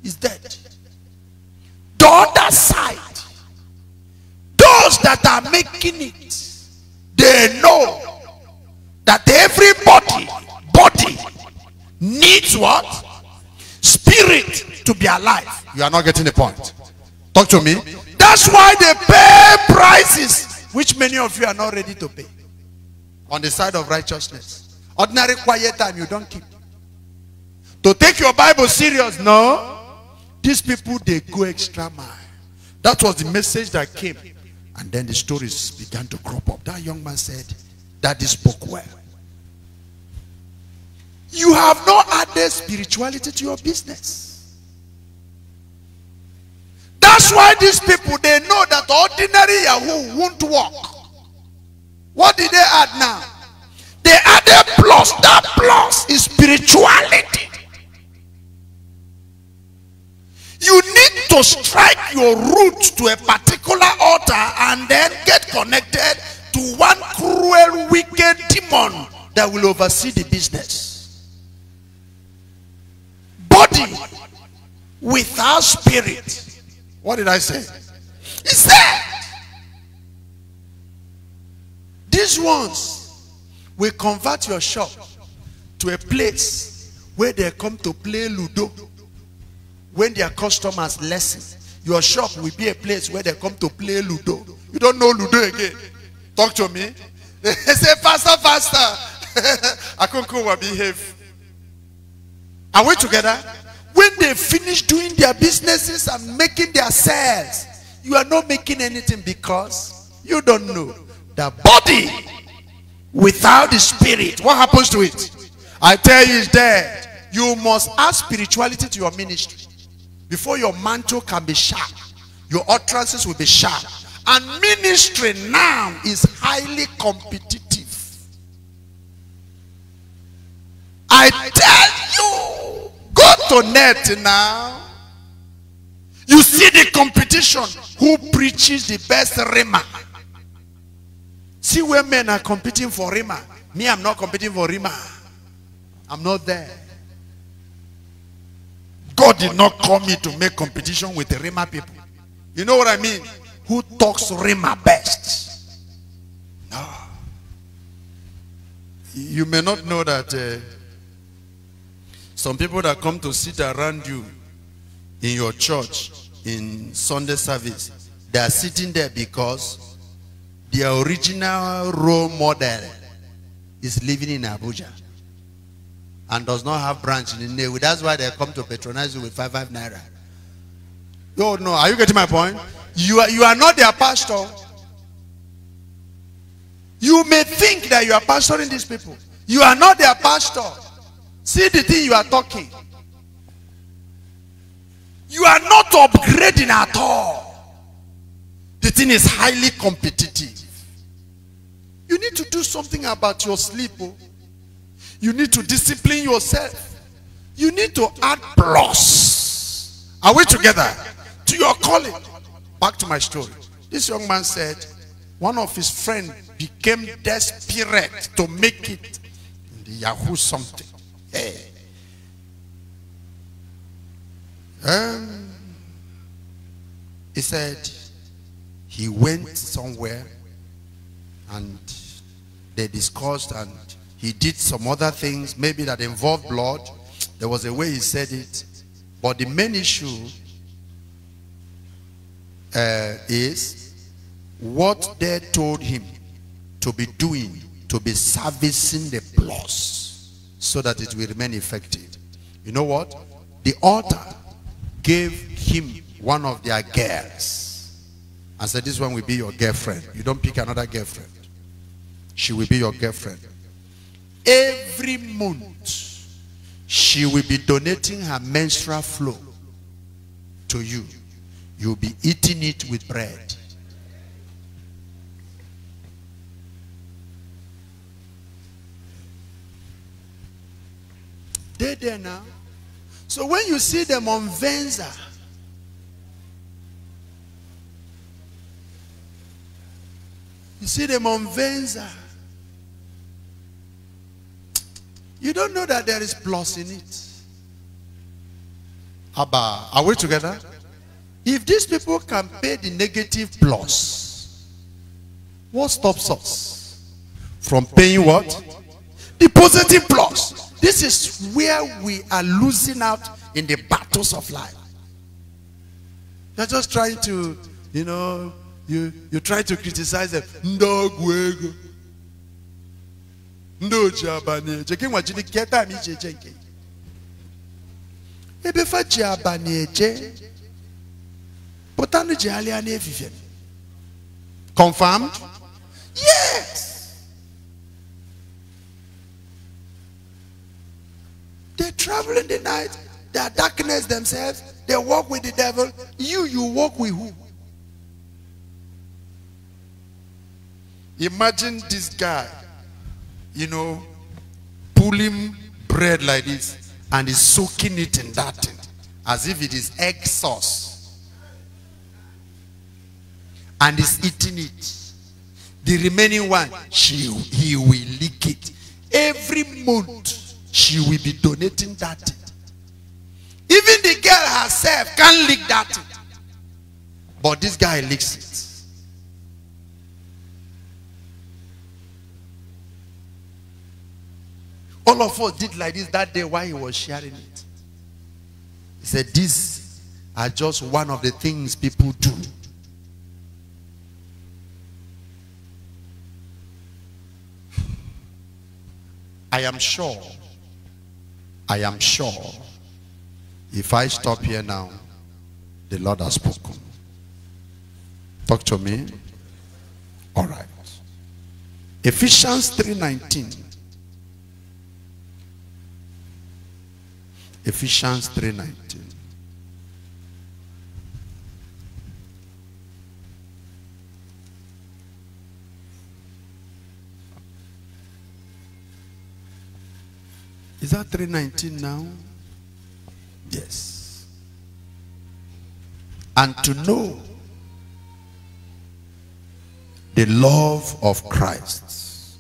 is dead. The other side, those that are making it, they know that everybody, body, needs what? Spirit to be alive. You are not getting the point. Talk to me. That's why they pay prices which many of you are not ready to pay. On the side of righteousness. Ordinary quiet time you don't keep. To take your Bible serious, no. These people, they go extra mile. That was the message that came. And then the stories began to crop up. That young man said, Daddy spoke well. You have not added spirituality to your business. That's why these people, they know that ordinary Yahoo won't work. What did they add now? They added plus. That plus is spirituality. You need to strike your root to a particular altar and then get connected to one cruel, wicked demon that will oversee the business. Body without spirit. What did I say? It's there. These ones will convert your shop to a place where they come to play Ludo when their customers lessen, your shop will be a place where they come to play Ludo. You don't know Ludo again. Talk to me. They say, faster, faster. Akunku will behave. Are we together? When they finish doing their businesses and making their sales, you are not making anything because you don't know. The body without the spirit, what happens to it? I tell you, it's dead. You must add spirituality to your ministry. Before your mantle can be sharp, your utterances will be sharp. And ministry now is highly competitive. I tell you, go to net now. You see the competition. Who preaches the best rima? See where men are competing for rima. Me, I'm not competing for rima. I'm not there. God did not call me to make competition with the Rima people. You know what I mean? Who talks Rima best? No. You may not know that uh, some people that come to sit around you in your church in Sunday service, they are sitting there because their original role model is living in Abuja and does not have branch in Inewi. That's why they come to patronize you with five five naira. Oh no, are you getting my point? You are, you are not their pastor. You may think that you are pastoring these people. You are not their pastor. See the thing you are talking. You are not upgrading at all. The thing is highly competitive. You need to do something about your sleep. Oh. You need to discipline yourself. You need to add plus. Are we together? To your calling. Back to my story. This young man said, one of his friends became desperate to make it in the Yahoo something. Hey. Um, he said he went somewhere and they discussed and he did some other things, maybe that involved blood. There was a way he said it. But the main issue uh, is what they told him to be doing, to be servicing the plus so that it will remain effective. You know what? The altar gave him one of their girls and said, this one will be your girlfriend. You don't pick another girlfriend. She will be your girlfriend every month she will be donating her menstrual flow to you. You'll be eating it with bread. They there now. So when you see them on Venza, you see them on Venza. You don't know that there is plus in it. Abba, are we together? If these people can pay the negative plus, what stops us from paying what? The positive plus. This is where we are losing out in the battles of life. You're just trying to, you know, you, you try to criticize them. No, oji abalị eje gị nwa jiri gee taam iji eje nke ebe fa ji confirmed yes they travel in the night they are darkness themselves they walk with the devil you you walk with who imagine this guy you know, pulling bread like this and is soaking it in that thing as if it is egg sauce and is eating it. The remaining one, she, he will lick it. Every month, she will be donating that. Thing. Even the girl herself can't lick that. But this guy licks it. All of us did like this that day while he was sharing it. He said, These are just one of the things people do. I am sure, I am sure, if I stop here now, the Lord has spoken. Talk to me. All right. Ephesians 3.19 Ephesians 3:19. Is that 319 now? Yes. And to know the love of Christ.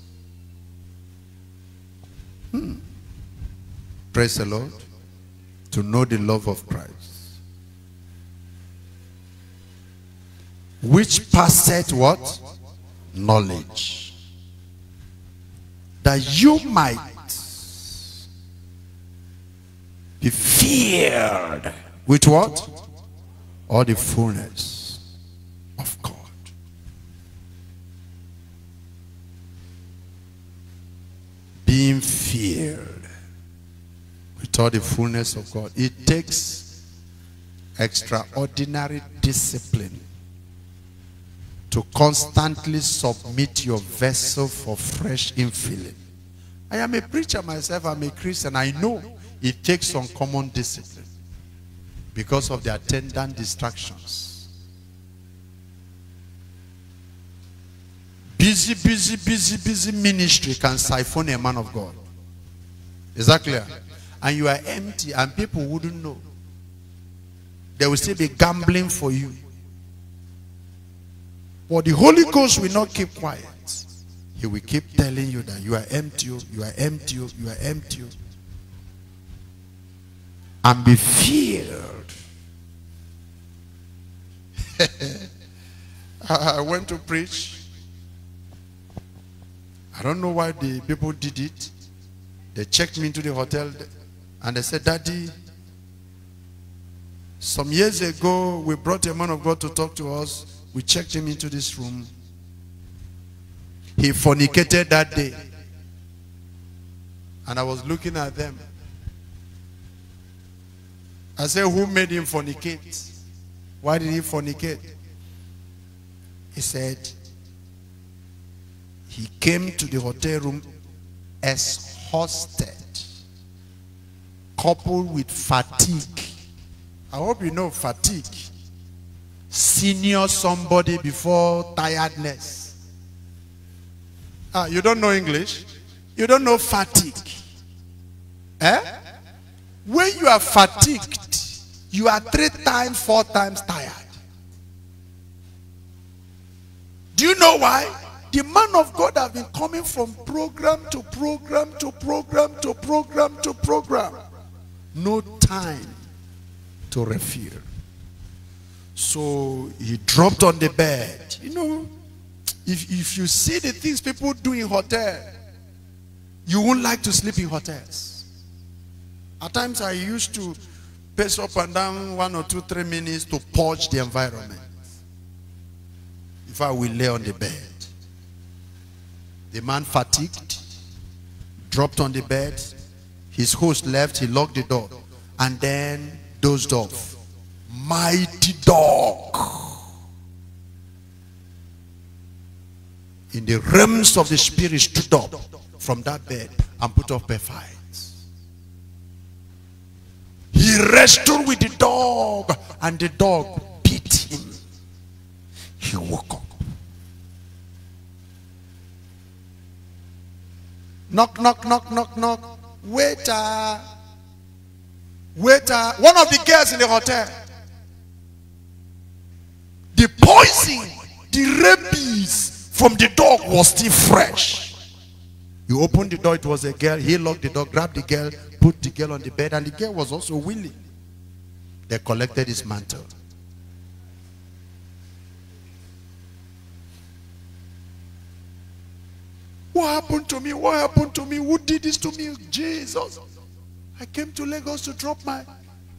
Hmm. Praise the Lord to know the love of Christ, which passeth what? Knowledge. That you might be feared with what? All the fullness all the fullness of God. It takes extraordinary discipline to constantly submit your vessel for fresh infilling. I am a preacher myself, I'm a Christian. I know it takes uncommon discipline because of the attendant distractions. Busy, busy, busy, busy ministry can siphon a man of God. Is that clear? and you are empty and people wouldn't know. They will still be gambling for you. But the Holy Ghost will not keep quiet. He will keep telling you that you are empty, oh, you are empty, oh, you are empty. Oh. And be filled. I went to preach. I don't know why the people did it. They checked me into the hotel. And I said, Daddy, some years ago, we brought a man of God to talk to us. We checked him into this room. He fornicated that day. And I was looking at them. I said, Who made him fornicate? Why did he fornicate? He said, He came to the hotel room as hosted coupled with fatigue. I hope you know fatigue. Senior somebody before tiredness. Ah, you don't know English? You don't know fatigue. Eh? When you are fatigued, you are three times, four times tired. Do you know why? The man of God have been coming from program to program to program to program to program. To program no time to refill. So he dropped on the bed. You know, if, if you see the things people do in hotel, you won't like to sleep in hotels. At times I used to pace up and down one or two, three minutes to purge the environment. If I will lay on the bed. The man fatigued, dropped on the bed, his host left, he locked the door, and then dozed off. Mighty dog. In the realms of the spirit stood up from that bed and put up a fight. He wrestled with the dog and the dog beat him. He woke up. Knock, knock, knock, knock, knock. Waiter. Waiter. One of the girls in the hotel. The poison, the rabies from the dog was still fresh. You opened the door, it was a girl. He locked the door, grabbed the girl, put the girl on the bed, and the girl was also willing. They collected his mantle. What happened to me? What happened to me? Who did this to me? Jesus. I came to Lagos to drop my,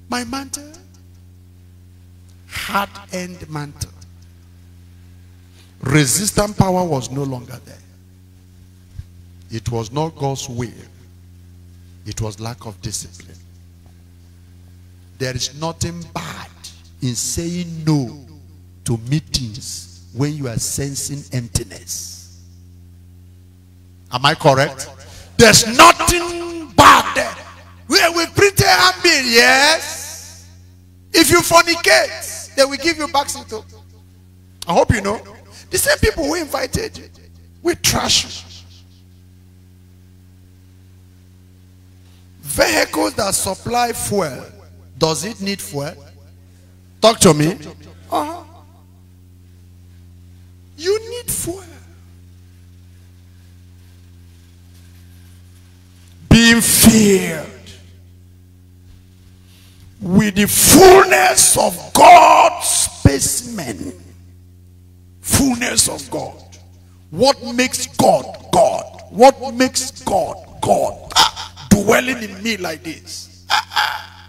my mantle. Hard end mantle. Resistant power was no longer there. It was not God's will. It was lack of discipline. There is nothing bad in saying no to meetings when you are sensing emptiness. Am I correct? There's nothing bad there. We, we printed and yes. If you fornicate, they will give you back into. I hope you know. The same people who invited you, we trash you. Vehicles that supply fuel, does it need fuel? Talk to me. Uh -huh. You need fuel. Feared filled with the fullness of God's specimen. Fullness of God. What makes God God? What makes God God? Ah, dwelling in me like this. Ah, ah.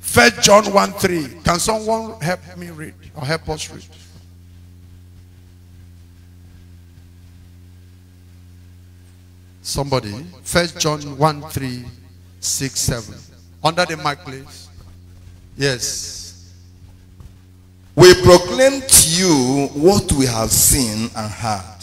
First John 1 3. Can someone help me read or help us read? Somebody. First John 1 3 6 7. Under the mic, please. Yes. We proclaim to you what we have seen and heard,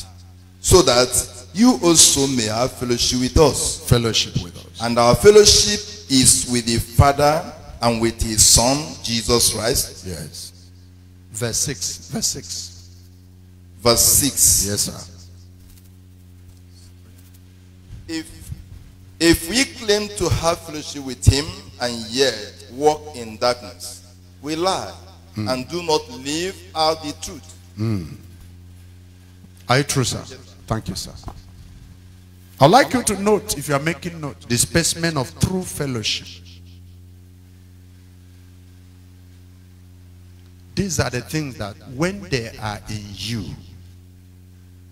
so that you also may have fellowship with us. Fellowship with us. And our fellowship is with the Father and with his Son, Jesus Christ. Yes. Verse 6. Verse 6. Verse 6. Yes, sir. If, if we claim to have fellowship with him and yet walk in darkness, we lie mm. and do not live out the truth. Mm. Are you true, sir? Thank you, sir. I'd like you to note, if you are making note, the specimen of true fellowship. These are the things that when they are in you,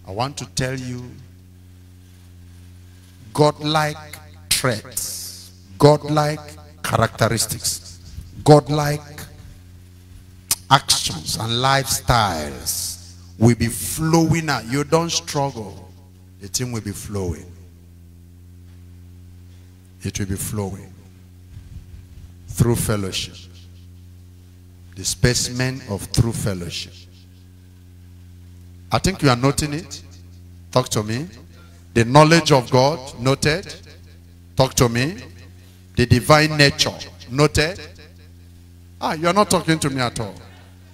I want to tell you godlike traits, godlike characteristics, godlike actions and lifestyles will be flowing out. You don't struggle. The thing will be flowing. It will be flowing through fellowship. The specimen of true fellowship. I think you are noting it. Talk to me. The knowledge of God, noted. Talk to me. The divine nature, noted. Ah, you are not talking to me at all.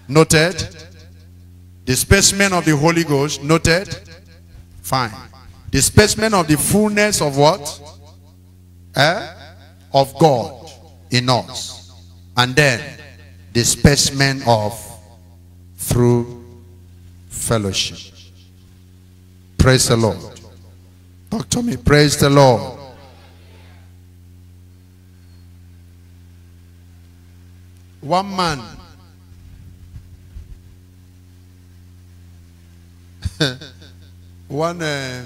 Noted. The specimen of the Holy Ghost, noted. Fine. The specimen of the fullness of what? Eh? Of God in us. And then the specimen of through fellowship. Praise the Lord. Talk to me. Praise the Lord. One man. One uh,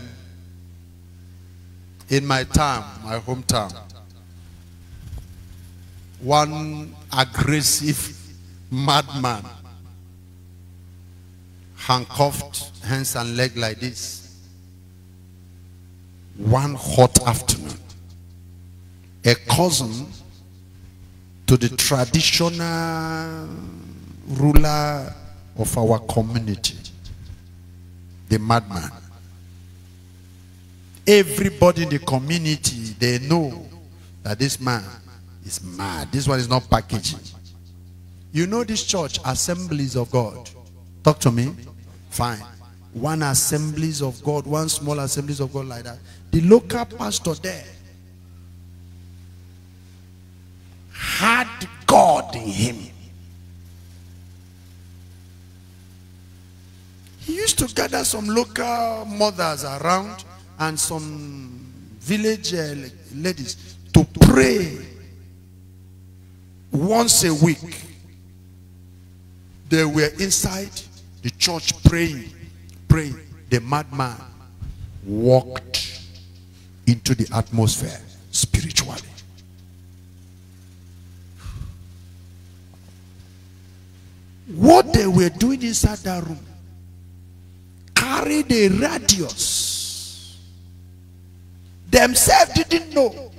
in my town, my hometown. One aggressive madman handcuffed hands and leg like this one hot afternoon, a cousin to the traditional ruler of our community, the madman. Everybody in the community, they know that this man is mad. This one is not packaging. You know this church, Assemblies of God. Talk to me. Fine. One Assemblies of God, one small Assemblies of God like that the local pastor there had God in him. He used to gather some local mothers around and some village uh, ladies to pray once a week. They were inside the church praying, praying. The madman walked into the atmosphere spiritually. What they were doing inside that room carried a radius. Themselves didn't know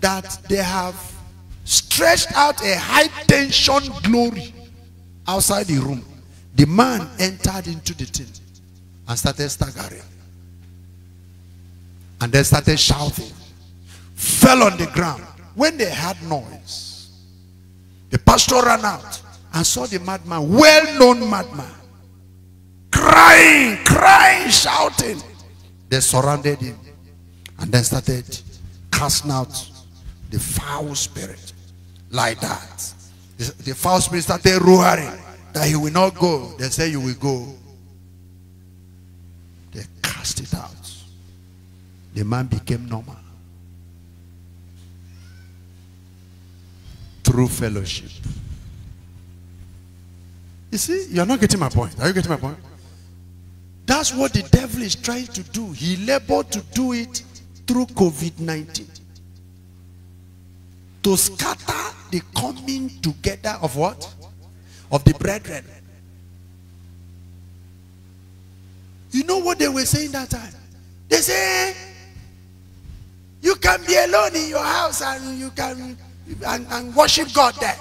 that they have stretched out a high tension glory outside the room. The man entered into the tent and started staggering and they started shouting, fell on the ground. When they heard noise, the pastor ran out and saw the madman, well-known madman, crying, crying, shouting. They surrounded him and then started casting out the foul spirit like that. The, the foul spirit started roaring that he will not go. They say you will go. They cast it out. The man became normal. Through fellowship. You see, you're not getting my point. Are you getting my point? That's what the devil is trying to do. He labored to do it through COVID-19. To scatter the coming together of what? Of the brethren. You know what they were saying that time? They say you can be alone in your house and you can and, and worship God there.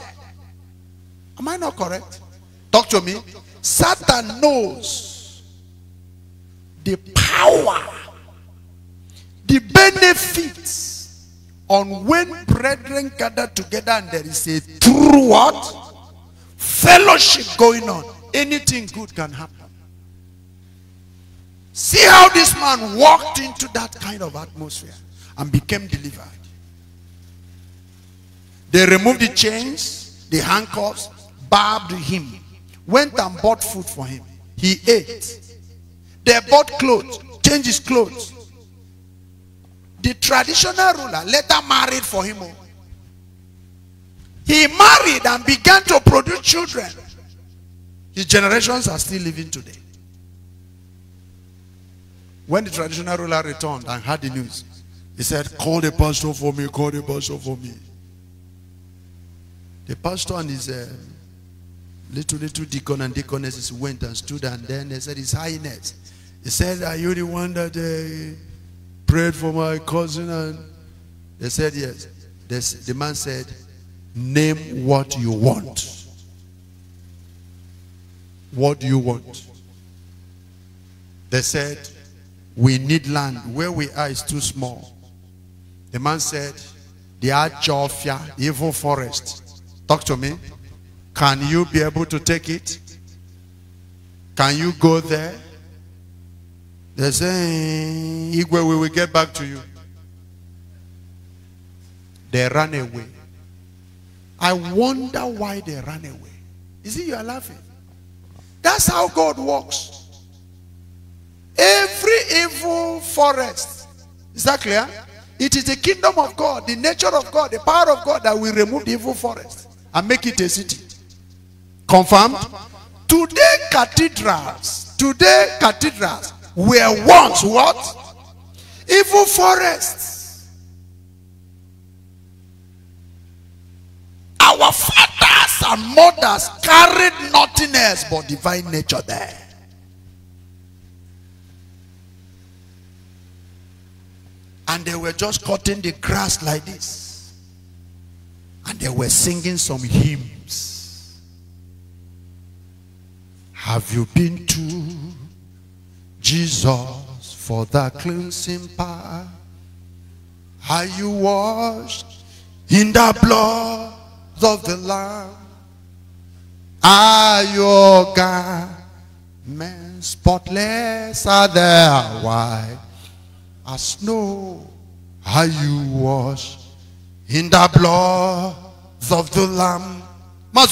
Am I not correct? Talk to me. Satan knows the power, the benefits on when brethren gather together and there is a true what? Fellowship going on. Anything good can happen. See how this man walked into that kind of atmosphere and became delivered. They removed the chains, the handcuffs, barbed him, went and bought food for him. He ate. They bought clothes, changed his clothes. The traditional ruler later married for him. He married and began to produce children. His generations are still living today. When the traditional ruler returned and heard the news, he said, call the pastor for me, call the pastor for me. The pastor and his uh, little, little deacon and deaconesses went and stood and then they said, His Highness. He said, are you the one that uh, prayed for my cousin? And they said, yes. This, the man said, name what you want. What do you want? They said, we need land. Where we are is too small. The man said, The Ajofia, evil forest. Talk to me. Can you be able to take it? Can you go there? They say, eh, Igwe, we will get back to you. They ran away. I wonder why they ran away. Is it you are laughing. That's how God works. Every evil forest. Is that clear? It is the kingdom of God, the nature of God, the power of God that will remove the evil forest and make it a city. Confirmed? Today, cathedrals, today, cathedrals were once what? Evil forests. Our fathers and mothers carried nothing else but divine nature there. and they were just cutting the grass like this. And they were singing some hymns. Have you been to Jesus for the cleansing power? Are you washed in the blood of the Lamb? Are your garments spotless? Are they white? as snow. how you wash in the blood of the Lamb? That's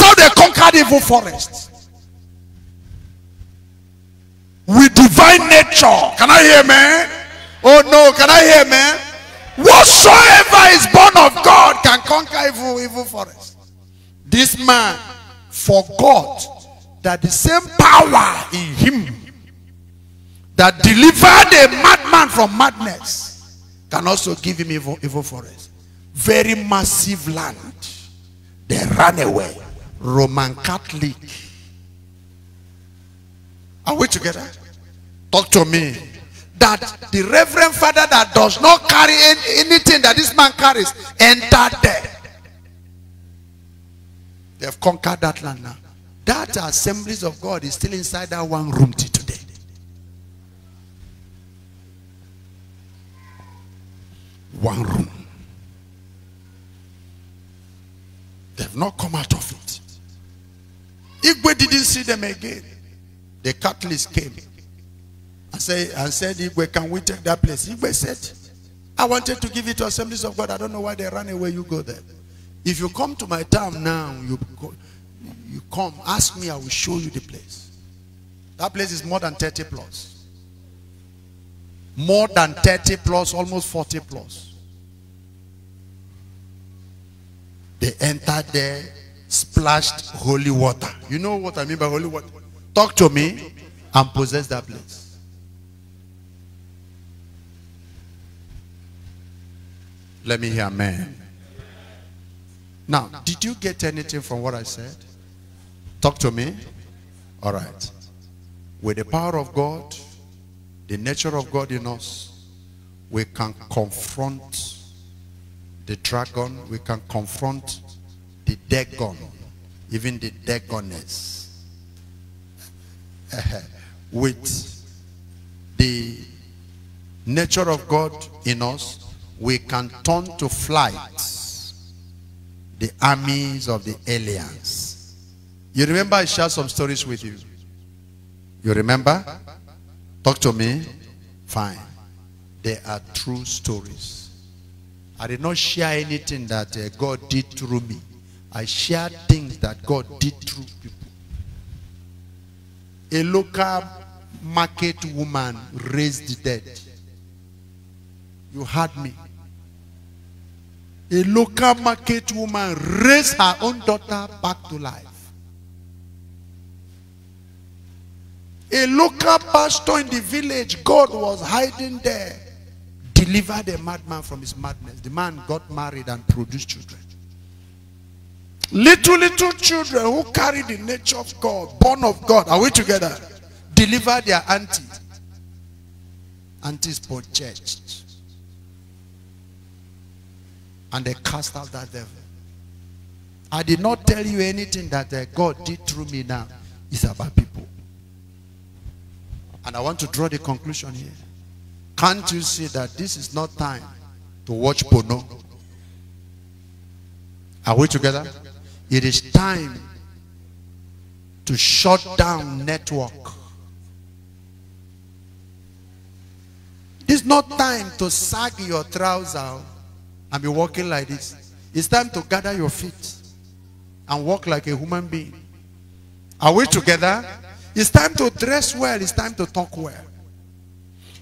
how they conquered evil forest. With divine nature. Can I hear man? Oh no, can I hear man? Whatsoever is born of God can conquer evil, evil forest. This man forgot that the same power in him that delivered a madman from madness can also give him evil, evil forest. Very massive land. They ran away. Roman Catholic. Are we together? Talk to me. That the reverend father that does not carry anything that this man carries entered there. They have conquered that land now. That assemblies of God is still inside that one room today. One room. They've not come out of it. Igwe didn't see them again. The catalyst came and said, and said Igwe, can we take that place? Igwe said, I wanted to give it to assemblies of God. I don't know why they ran away. You go there. If you come to my town now, you you come, ask me, I will show you the place. That place is more than 30 plus. More than 30 plus, almost 40 plus. They entered there, splashed holy water. You know what I mean by holy water? Talk to me and possess that place. Let me hear amen. Now, did you get anything from what I said? Talk to me. All right. With the power of God, the nature of God in us, we can confront the dragon, we can confront the dagon, even the dagoness, with the nature of God in us, we can turn to flight the armies of the aliens. You remember I shared some stories with you? You remember? Talk to me. Fine. They are true stories. I did not share anything that uh, God did through me. I shared things that God did through people. A local market woman raised the dead. You heard me. A local market woman raised her own daughter back to life. A local pastor in the village, God was hiding there, delivered a madman from his madness. The man got married and produced children. Little, little children who carry the nature of God, born of God, are we together? Deliver their auntie, Aunties for church. And they cast out that devil. I did not tell you anything that uh, God did through me now. It's about people. And I want to draw the conclusion here. Can't you see that this is not time to watch porno? Are we together? It is time to shut down network. It's not time to sag your trousers and be walking like this. It's time to gather your feet and walk like a human being. Are we together? It's time to dress well. It's time to talk well.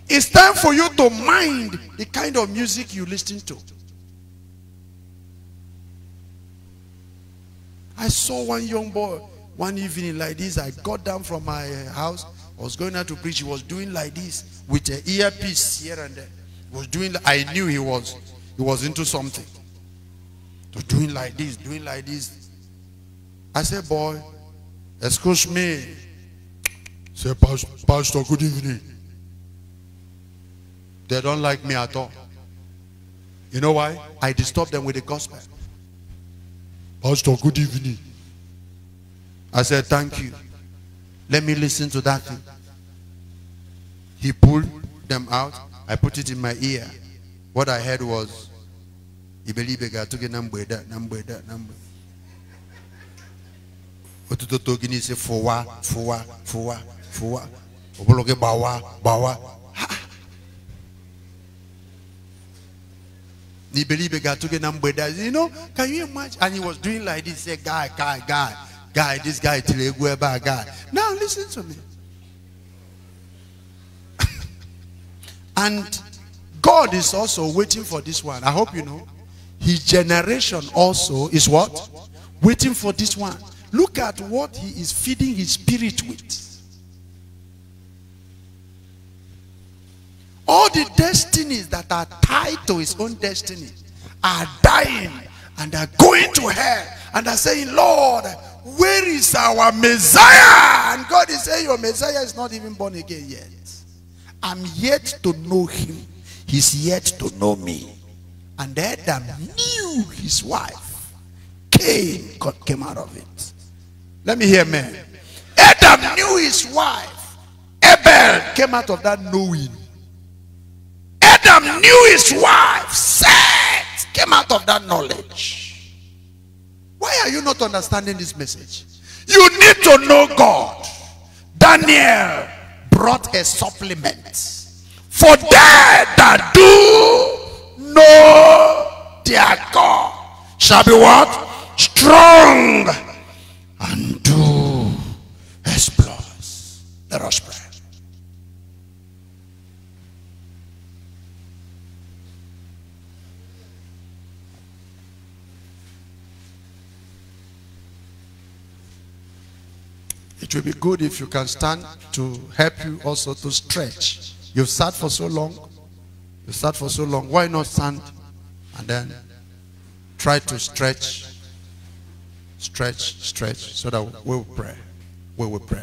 It's time for you to mind the kind of music you listen to. I saw one young boy one evening like this. I got down from my uh, house. I was going out to preach. He was doing like this with an earpiece here and there. He was doing. I knew he was. He was into something. So doing like this, doing like this. I said, boy, excuse me. Say, Pastor, good evening. They don't like me at all. You know why? I disturb them with the gospel. Pastor, good evening. I said, Thank you. Let me listen to that thing. He pulled them out. I put it in my ear. What I heard was, Ibelibega took a number that number that number. Otutoto gini se fowa, fowa, fowa fuwa obologe bawa bawa nibelibe gatuge na mbweda you know can you imagine and he was doing like this say guy guy guy guy this guy till egu eba guy now listen to me and God is also waiting for this one I hope you know his generation also is what waiting for this one look at what he is feeding his spirit with All the destinies that are tied to his own destiny are dying and are going to hell and are saying, Lord, where is our Messiah? And God is saying, your Messiah is not even born again yet. I'm yet to know him. He's yet to know me. And Adam knew his wife. Cain came out of it. Let me hear man. Adam knew his wife. Abel came out of that knowing. Adam knew his wife. said came out of that knowledge. Why are you not understanding this message? You need to know God. Daniel brought a supplement. For they that do know their God shall be what? Strong and do exploits. Let us pray. It will be good if you can stand to help you also to stretch. You've sat for so long. You sat for so long. Why not stand and then try to stretch, stretch, stretch so that we will pray. We will pray.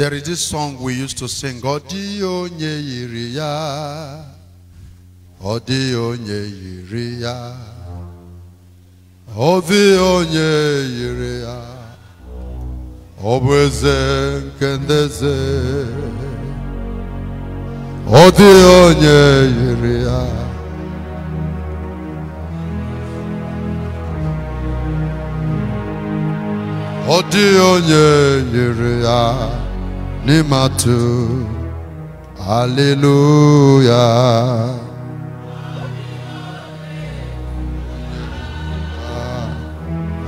There is this song we used to sing. Odio nye yiri ya. Odio nye yiri ya. Odio nye yiri ya. Obweze nkendeze. nye Odio nye Nimatu, màá tó hallelujah.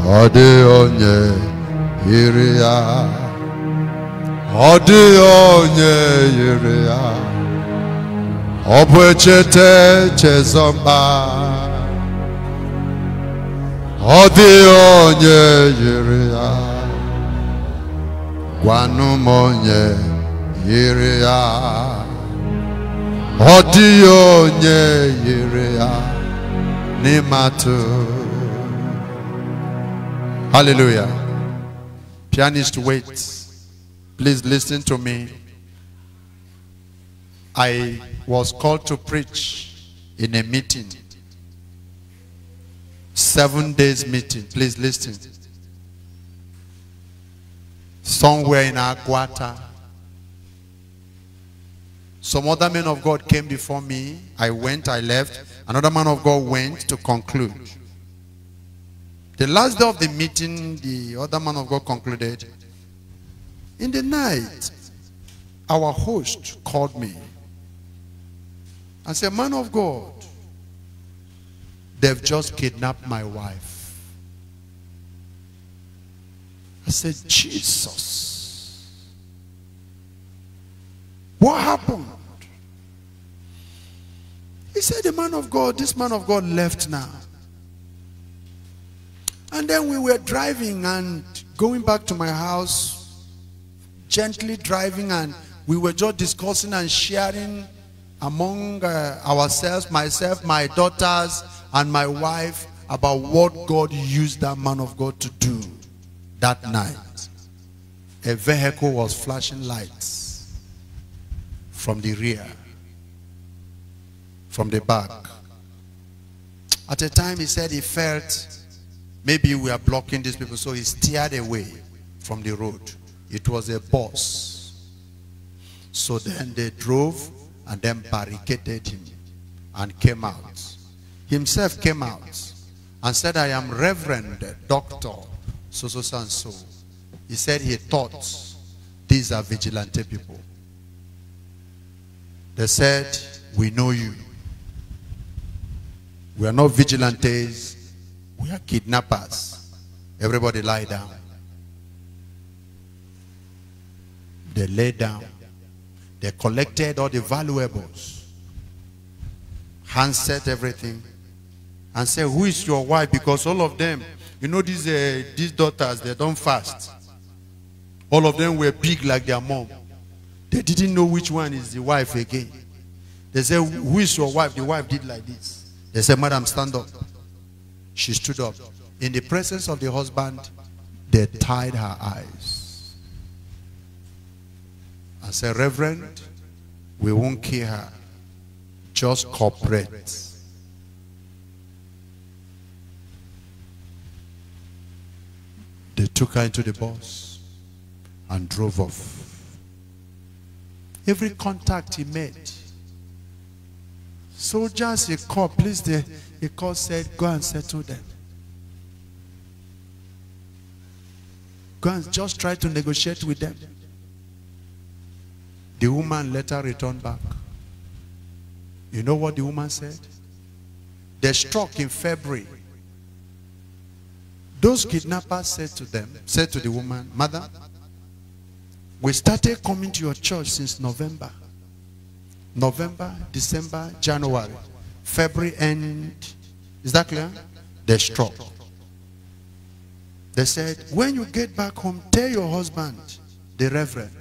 ọ dịghị onye yiri ya ọ dịghị onye yiri ya ọ bụ onye yiri gwanumonye yiri ya ọ dịghị onye n'ịmatụ hallelujah pianist wait please listen to me i was called to preach in a meeting seven days meeting please listen somewhere in Aguata. Some other men of God came before me. I went, I left. Another man of God went to conclude. The last day of the meeting, the other man of God concluded. In the night, our host called me and said, Man of God, they've just kidnapped my wife. said, Jesus, what happened? He said, the man of God, this man of God left now. And then we were driving and going back to my house, gently driving, and we were just discussing and sharing among uh, ourselves, myself, my daughters, and my wife about what God used that man of God to do that night, a vehicle was flashing lights from the rear, from the back. At a time, he said he felt maybe we are blocking these people, so he steered away from the road. It was a bus. So then they drove and then barricaded him and came out. Himself came out and said, I am Reverend Doctor so, so, so, and so. He said he thought these are vigilante people. They said, we know you. We are not vigilantes. We are kidnappers. Everybody lie down. They lay down. They collected all the valuables. Handset everything. And said, who is your wife? Because all of them you know these, uh, these daughters, they don't fast. All of them were big like their mom. They didn't know which one is the wife again. They said, who is your wife? The wife did like this. They said, madam, stand up. She stood up. In the presence of the husband, they tied her eyes. I said, reverend, we won't kill her. Just cooperate. They took her into the bus and drove off. Every contact he made, soldiers he called, please, The he called, said, go and settle them. Go and just try to negotiate with them. The woman later returned back. You know what the woman said? They struck in February those kidnappers said to them, said to the woman, Mother, we started coming to your church since November. November, December, January, February, end. is that clear? They struck. They said, when you get back home, tell your husband, the reverend,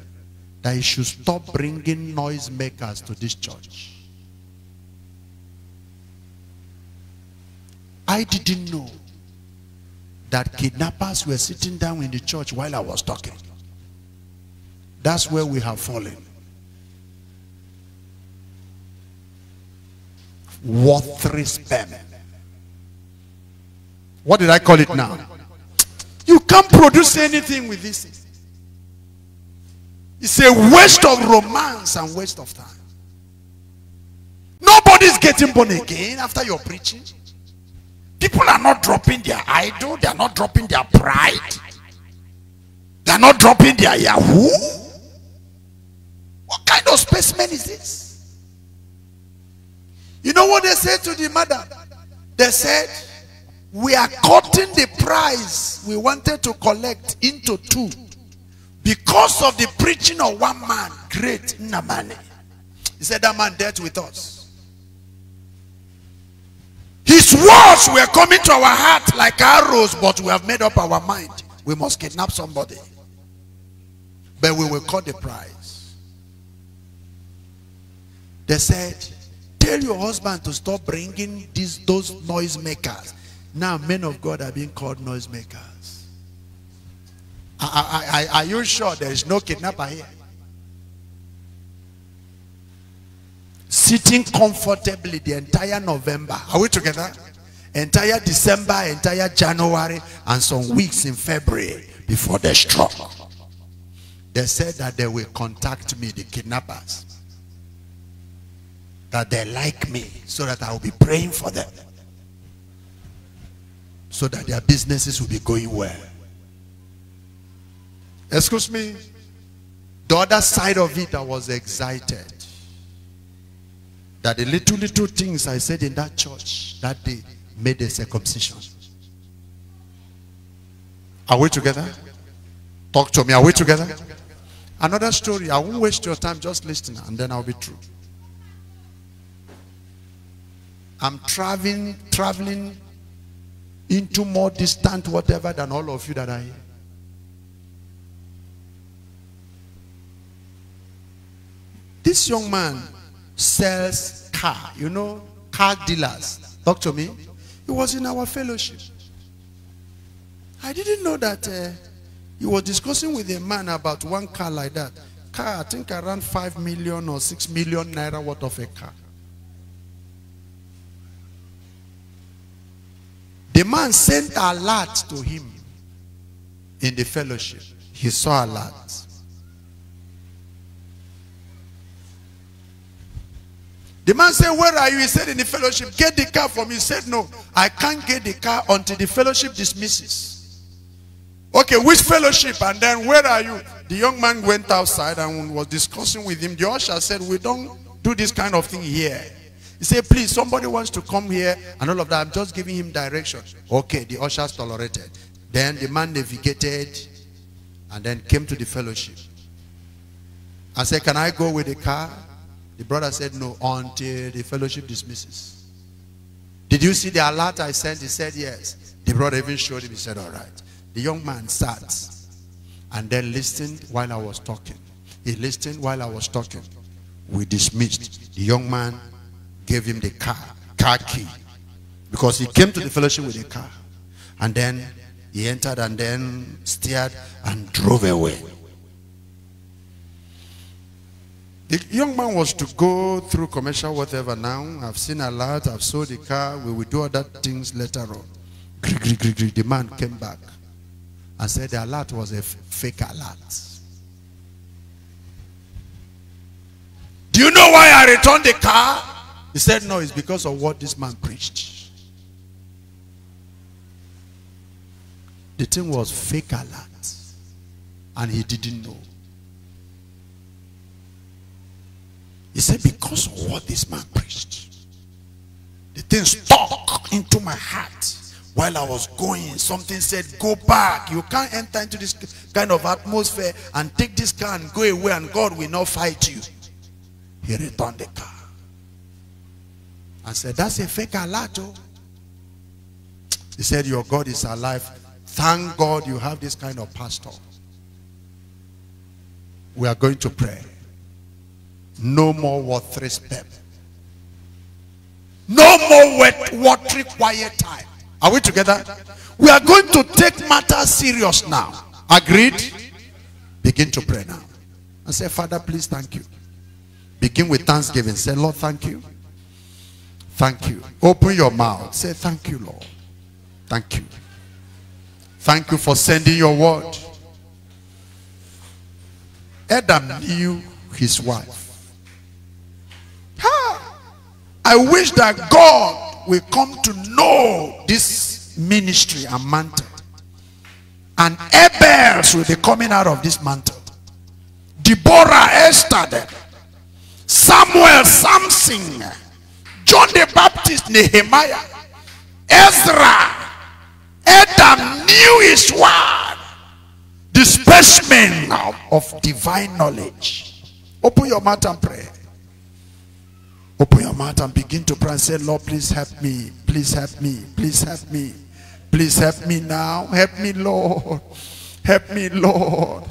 that he should stop bringing noisemakers to this church. I didn't know that kidnappers were sitting down in the church while I was talking. That's where we have fallen. Worthless spam. What did I call it now? You can't produce anything with this. It's a waste of romance and waste of time. Nobody's getting born again after your preaching. People are not dropping their idol. They are not dropping their pride. They are not dropping their Yahoo. What kind of specimen is this? You know what they said to the mother? They said, we are cutting the price we wanted to collect into two because of the preaching of one man, great Namani. He said that man dealt with us. His words were coming to our heart like arrows, but we have made up our mind. We must kidnap somebody. But we will cut the price. They said, tell your husband to stop bringing these, those noisemakers. Now men of God are being called noisemakers. makers. are, are you sure there is no kidnapper here? sitting comfortably the entire November. Are we together? Entire December, entire January, and some weeks in February before the struck. They said that they will contact me, the kidnappers. That they like me so that I will be praying for them. So that their businesses will be going well. Excuse me. The other side of it, I was excited that the little, little things I said in that church that day made a circumcision. Are we together? Talk to me. Are we together? Another story. I won't waste your time. Just listen and then I'll be true. I'm traveling, traveling into more distant whatever than all of you that are here. This young man sells car. You know, car dealers. Talk to me. He was in our fellowship. I didn't know that uh, he was discussing with a man about one car like that. Car, I think around 5 million or 6 million naira worth of a car. The man sent a lot to him in the fellowship. He saw a lot. The man said, where are you? He said, in the fellowship. Get the car from me. He said, no, I can't get the car until the fellowship dismisses. Okay, which fellowship? And then where are you? The young man went outside and was discussing with him. The usher said, we don't do this kind of thing here. He said, please, somebody wants to come here and all of that. I'm just giving him direction. Okay, the ushers tolerated. Then the man navigated and then came to the fellowship. I said, can I go with the car? The brother said, No, until the fellowship dismisses. Did you see the alert I sent? He said, Yes. The brother even showed him. He said, All right. The young man sat and then listened while I was talking. He listened while I was talking. We dismissed. The young man gave him the car, car key. Because he came to the fellowship with a car. And then he entered and then steered and drove away. The young man was to go through commercial whatever now. I've seen a lot. I've sold a car. We will do other things later on. The man came back and said the alert was a fake alert. Do you know why I returned the car? He said, no, it's because of what this man preached. The thing was fake alert. And he didn't know. He said, because of what this man preached, the thing stuck into my heart. While I was going, something said, go back. You can't enter into this kind of atmosphere and take this car and go away and God will not fight you. He returned the car. I said, that's a fake alato. Oh. He said, your God is alive. Thank God you have this kind of pastor. We are going to pray. No more worthless respect. No more wet, watery, quiet time. Are we together? We are going to take matters serious now. Agreed? Begin to pray now. And say, Father, please thank you. Begin with thanksgiving. Say, Lord, thank you. Thank you. Open your mouth. Say, thank you, Lord. Thank you. Thank you for sending your word. Adam knew his wife. I wish that God will come to know this ministry and mantle. And Abels will be coming out of this mantle. Deborah, Esther, Samuel, Samson, John the Baptist, Nehemiah, Ezra, Adam knew his word. The specimen of divine knowledge. Open your mouth and pray. Open your mouth and begin to pray and say, Lord, please help me. Please help me. Please help me. Please help me now. Help me, Lord. Help me, Lord.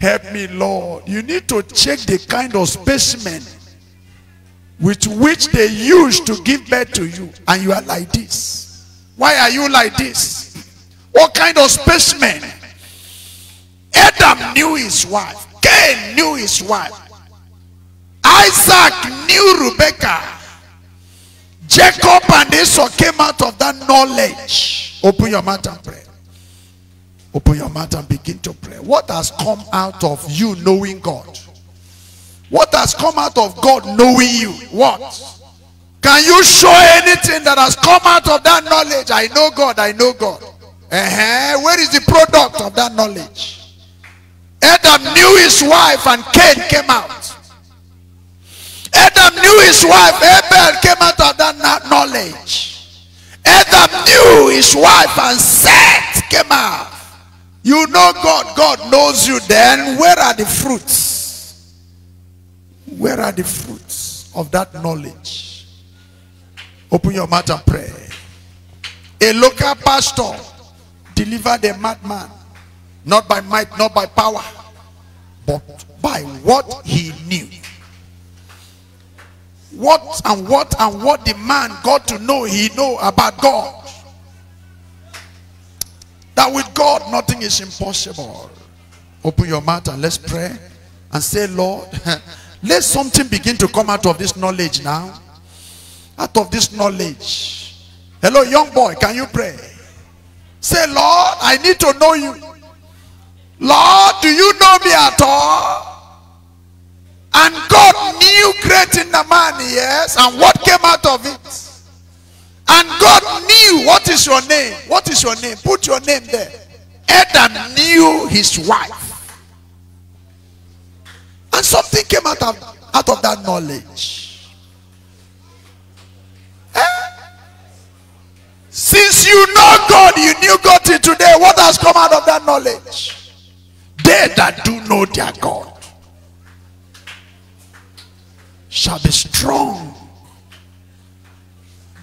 Help me, Lord. You need to check the kind of specimen with which they use to give birth to you. And you are like this. Why are you like this? What kind of specimen? Adam knew his wife. Cain knew his wife. Isaac knew Rebecca. Jacob and Esau came out of that knowledge. Open your mouth and pray. Open your mouth and begin to pray. What has come out of you knowing God? What has come out of God knowing you? What? Can you show anything that has come out of that knowledge? I know God, I know God. Uh -huh. Where is the product of that knowledge? Adam knew his wife and Cain came out. Adam knew his wife. Abel came out of that knowledge. Adam knew his wife and Seth came out. You know God. God knows you then. Where are the fruits? Where are the fruits of that knowledge? Open your mouth and pray. A local pastor delivered a madman. Not by might, not by power, but by what he knew what and what and what the man got to know he know about God. That with God nothing is impossible. Open your mouth and let's pray and say, Lord, let something begin to come out of this knowledge now. Out of this knowledge. Hello, young boy, can you pray? Say, Lord, I need to know you. Lord, do you know me at all? And God knew great in the man, yes, and what came out of it. And God knew what is your name. What is your name? Put your name there. Adam knew his wife. And something came out of, out of that knowledge. Eh? Since you know God, you knew God till today. What has come out of that knowledge? They that do know their God shall be strong.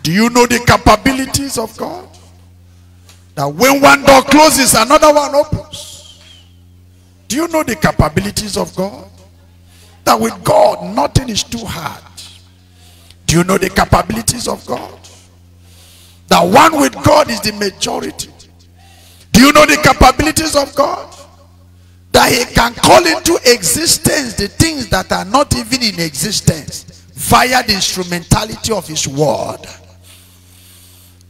Do you know the capabilities of God? That when one door closes, another one opens. Do you know the capabilities of God? That with God, nothing is too hard. Do you know the capabilities of God? That one with God is the majority. Do you know the capabilities of God? that he can call into existence the things that are not even in existence via the instrumentality of his word.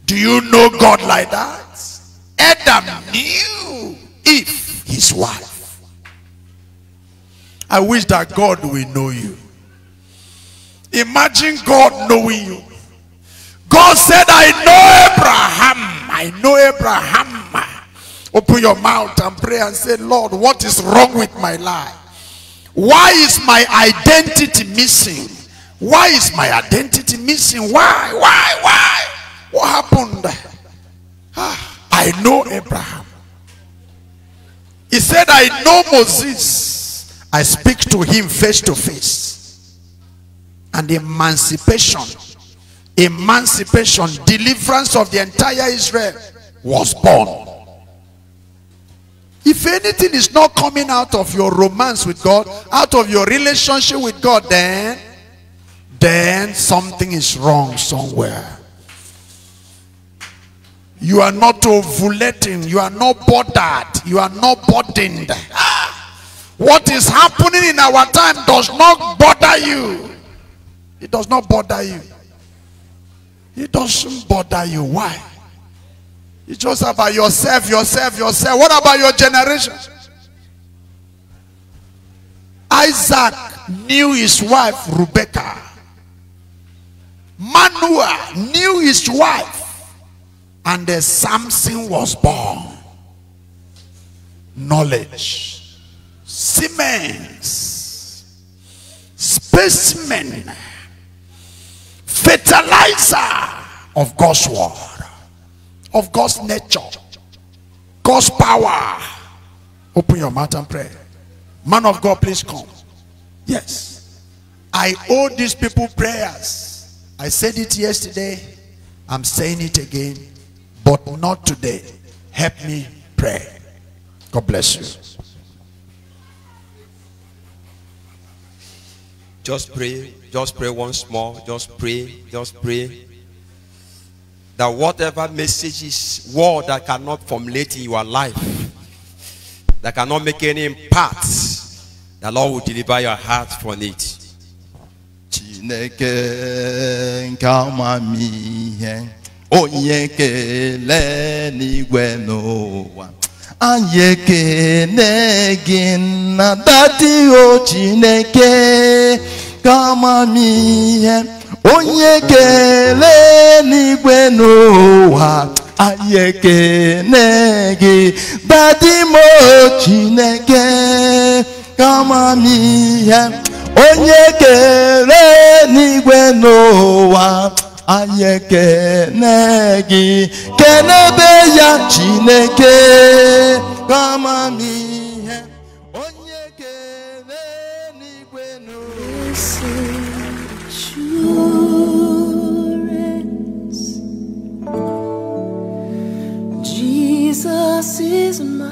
Do you know God like that? Adam knew if his wife. I wish that God will know you. Imagine God knowing you. God said, I know Abraham. I know Abraham Open your mouth and pray and say, Lord, what is wrong with my life? Why is my identity missing? Why is my identity missing? Why? Why? Why? What happened? Ah, I know Abraham. He said, I know Moses. I speak to him face to face. And emancipation, emancipation, deliverance of the entire Israel was born. If anything is not coming out of your romance with God, out of your relationship with God, then, then something is wrong somewhere. You are not ovulating. You are not bothered. You are not burdened. What is happening in our time does not bother you. It does not bother you. It doesn't bother you. Why? It's just about yourself, yourself, yourself. What about your generation? Isaac knew his wife Rebecca. Manoah knew his wife. And the Samson was born. Knowledge. Siemens. Specimen. Fertilizer of God's word of God's nature, God's power. Open your mouth and pray. Man of God, please come. Yes. I owe these people prayers. I said it yesterday. I'm saying it again. But not today. Help me pray. God bless you. Just pray. Just pray once more. Just pray. Just pray that whatever messages, word that cannot formulate in your life, that cannot make any impact, the Lord will deliver your heart from it. na dati o Chineke mi onye kele n'igwe n'ụwa anyị ekene gị badimo chineke kamamihe onye kele n'igwe n'ụwa ayekene ekene gị kenebe ya chineke kamamihe Jesus is my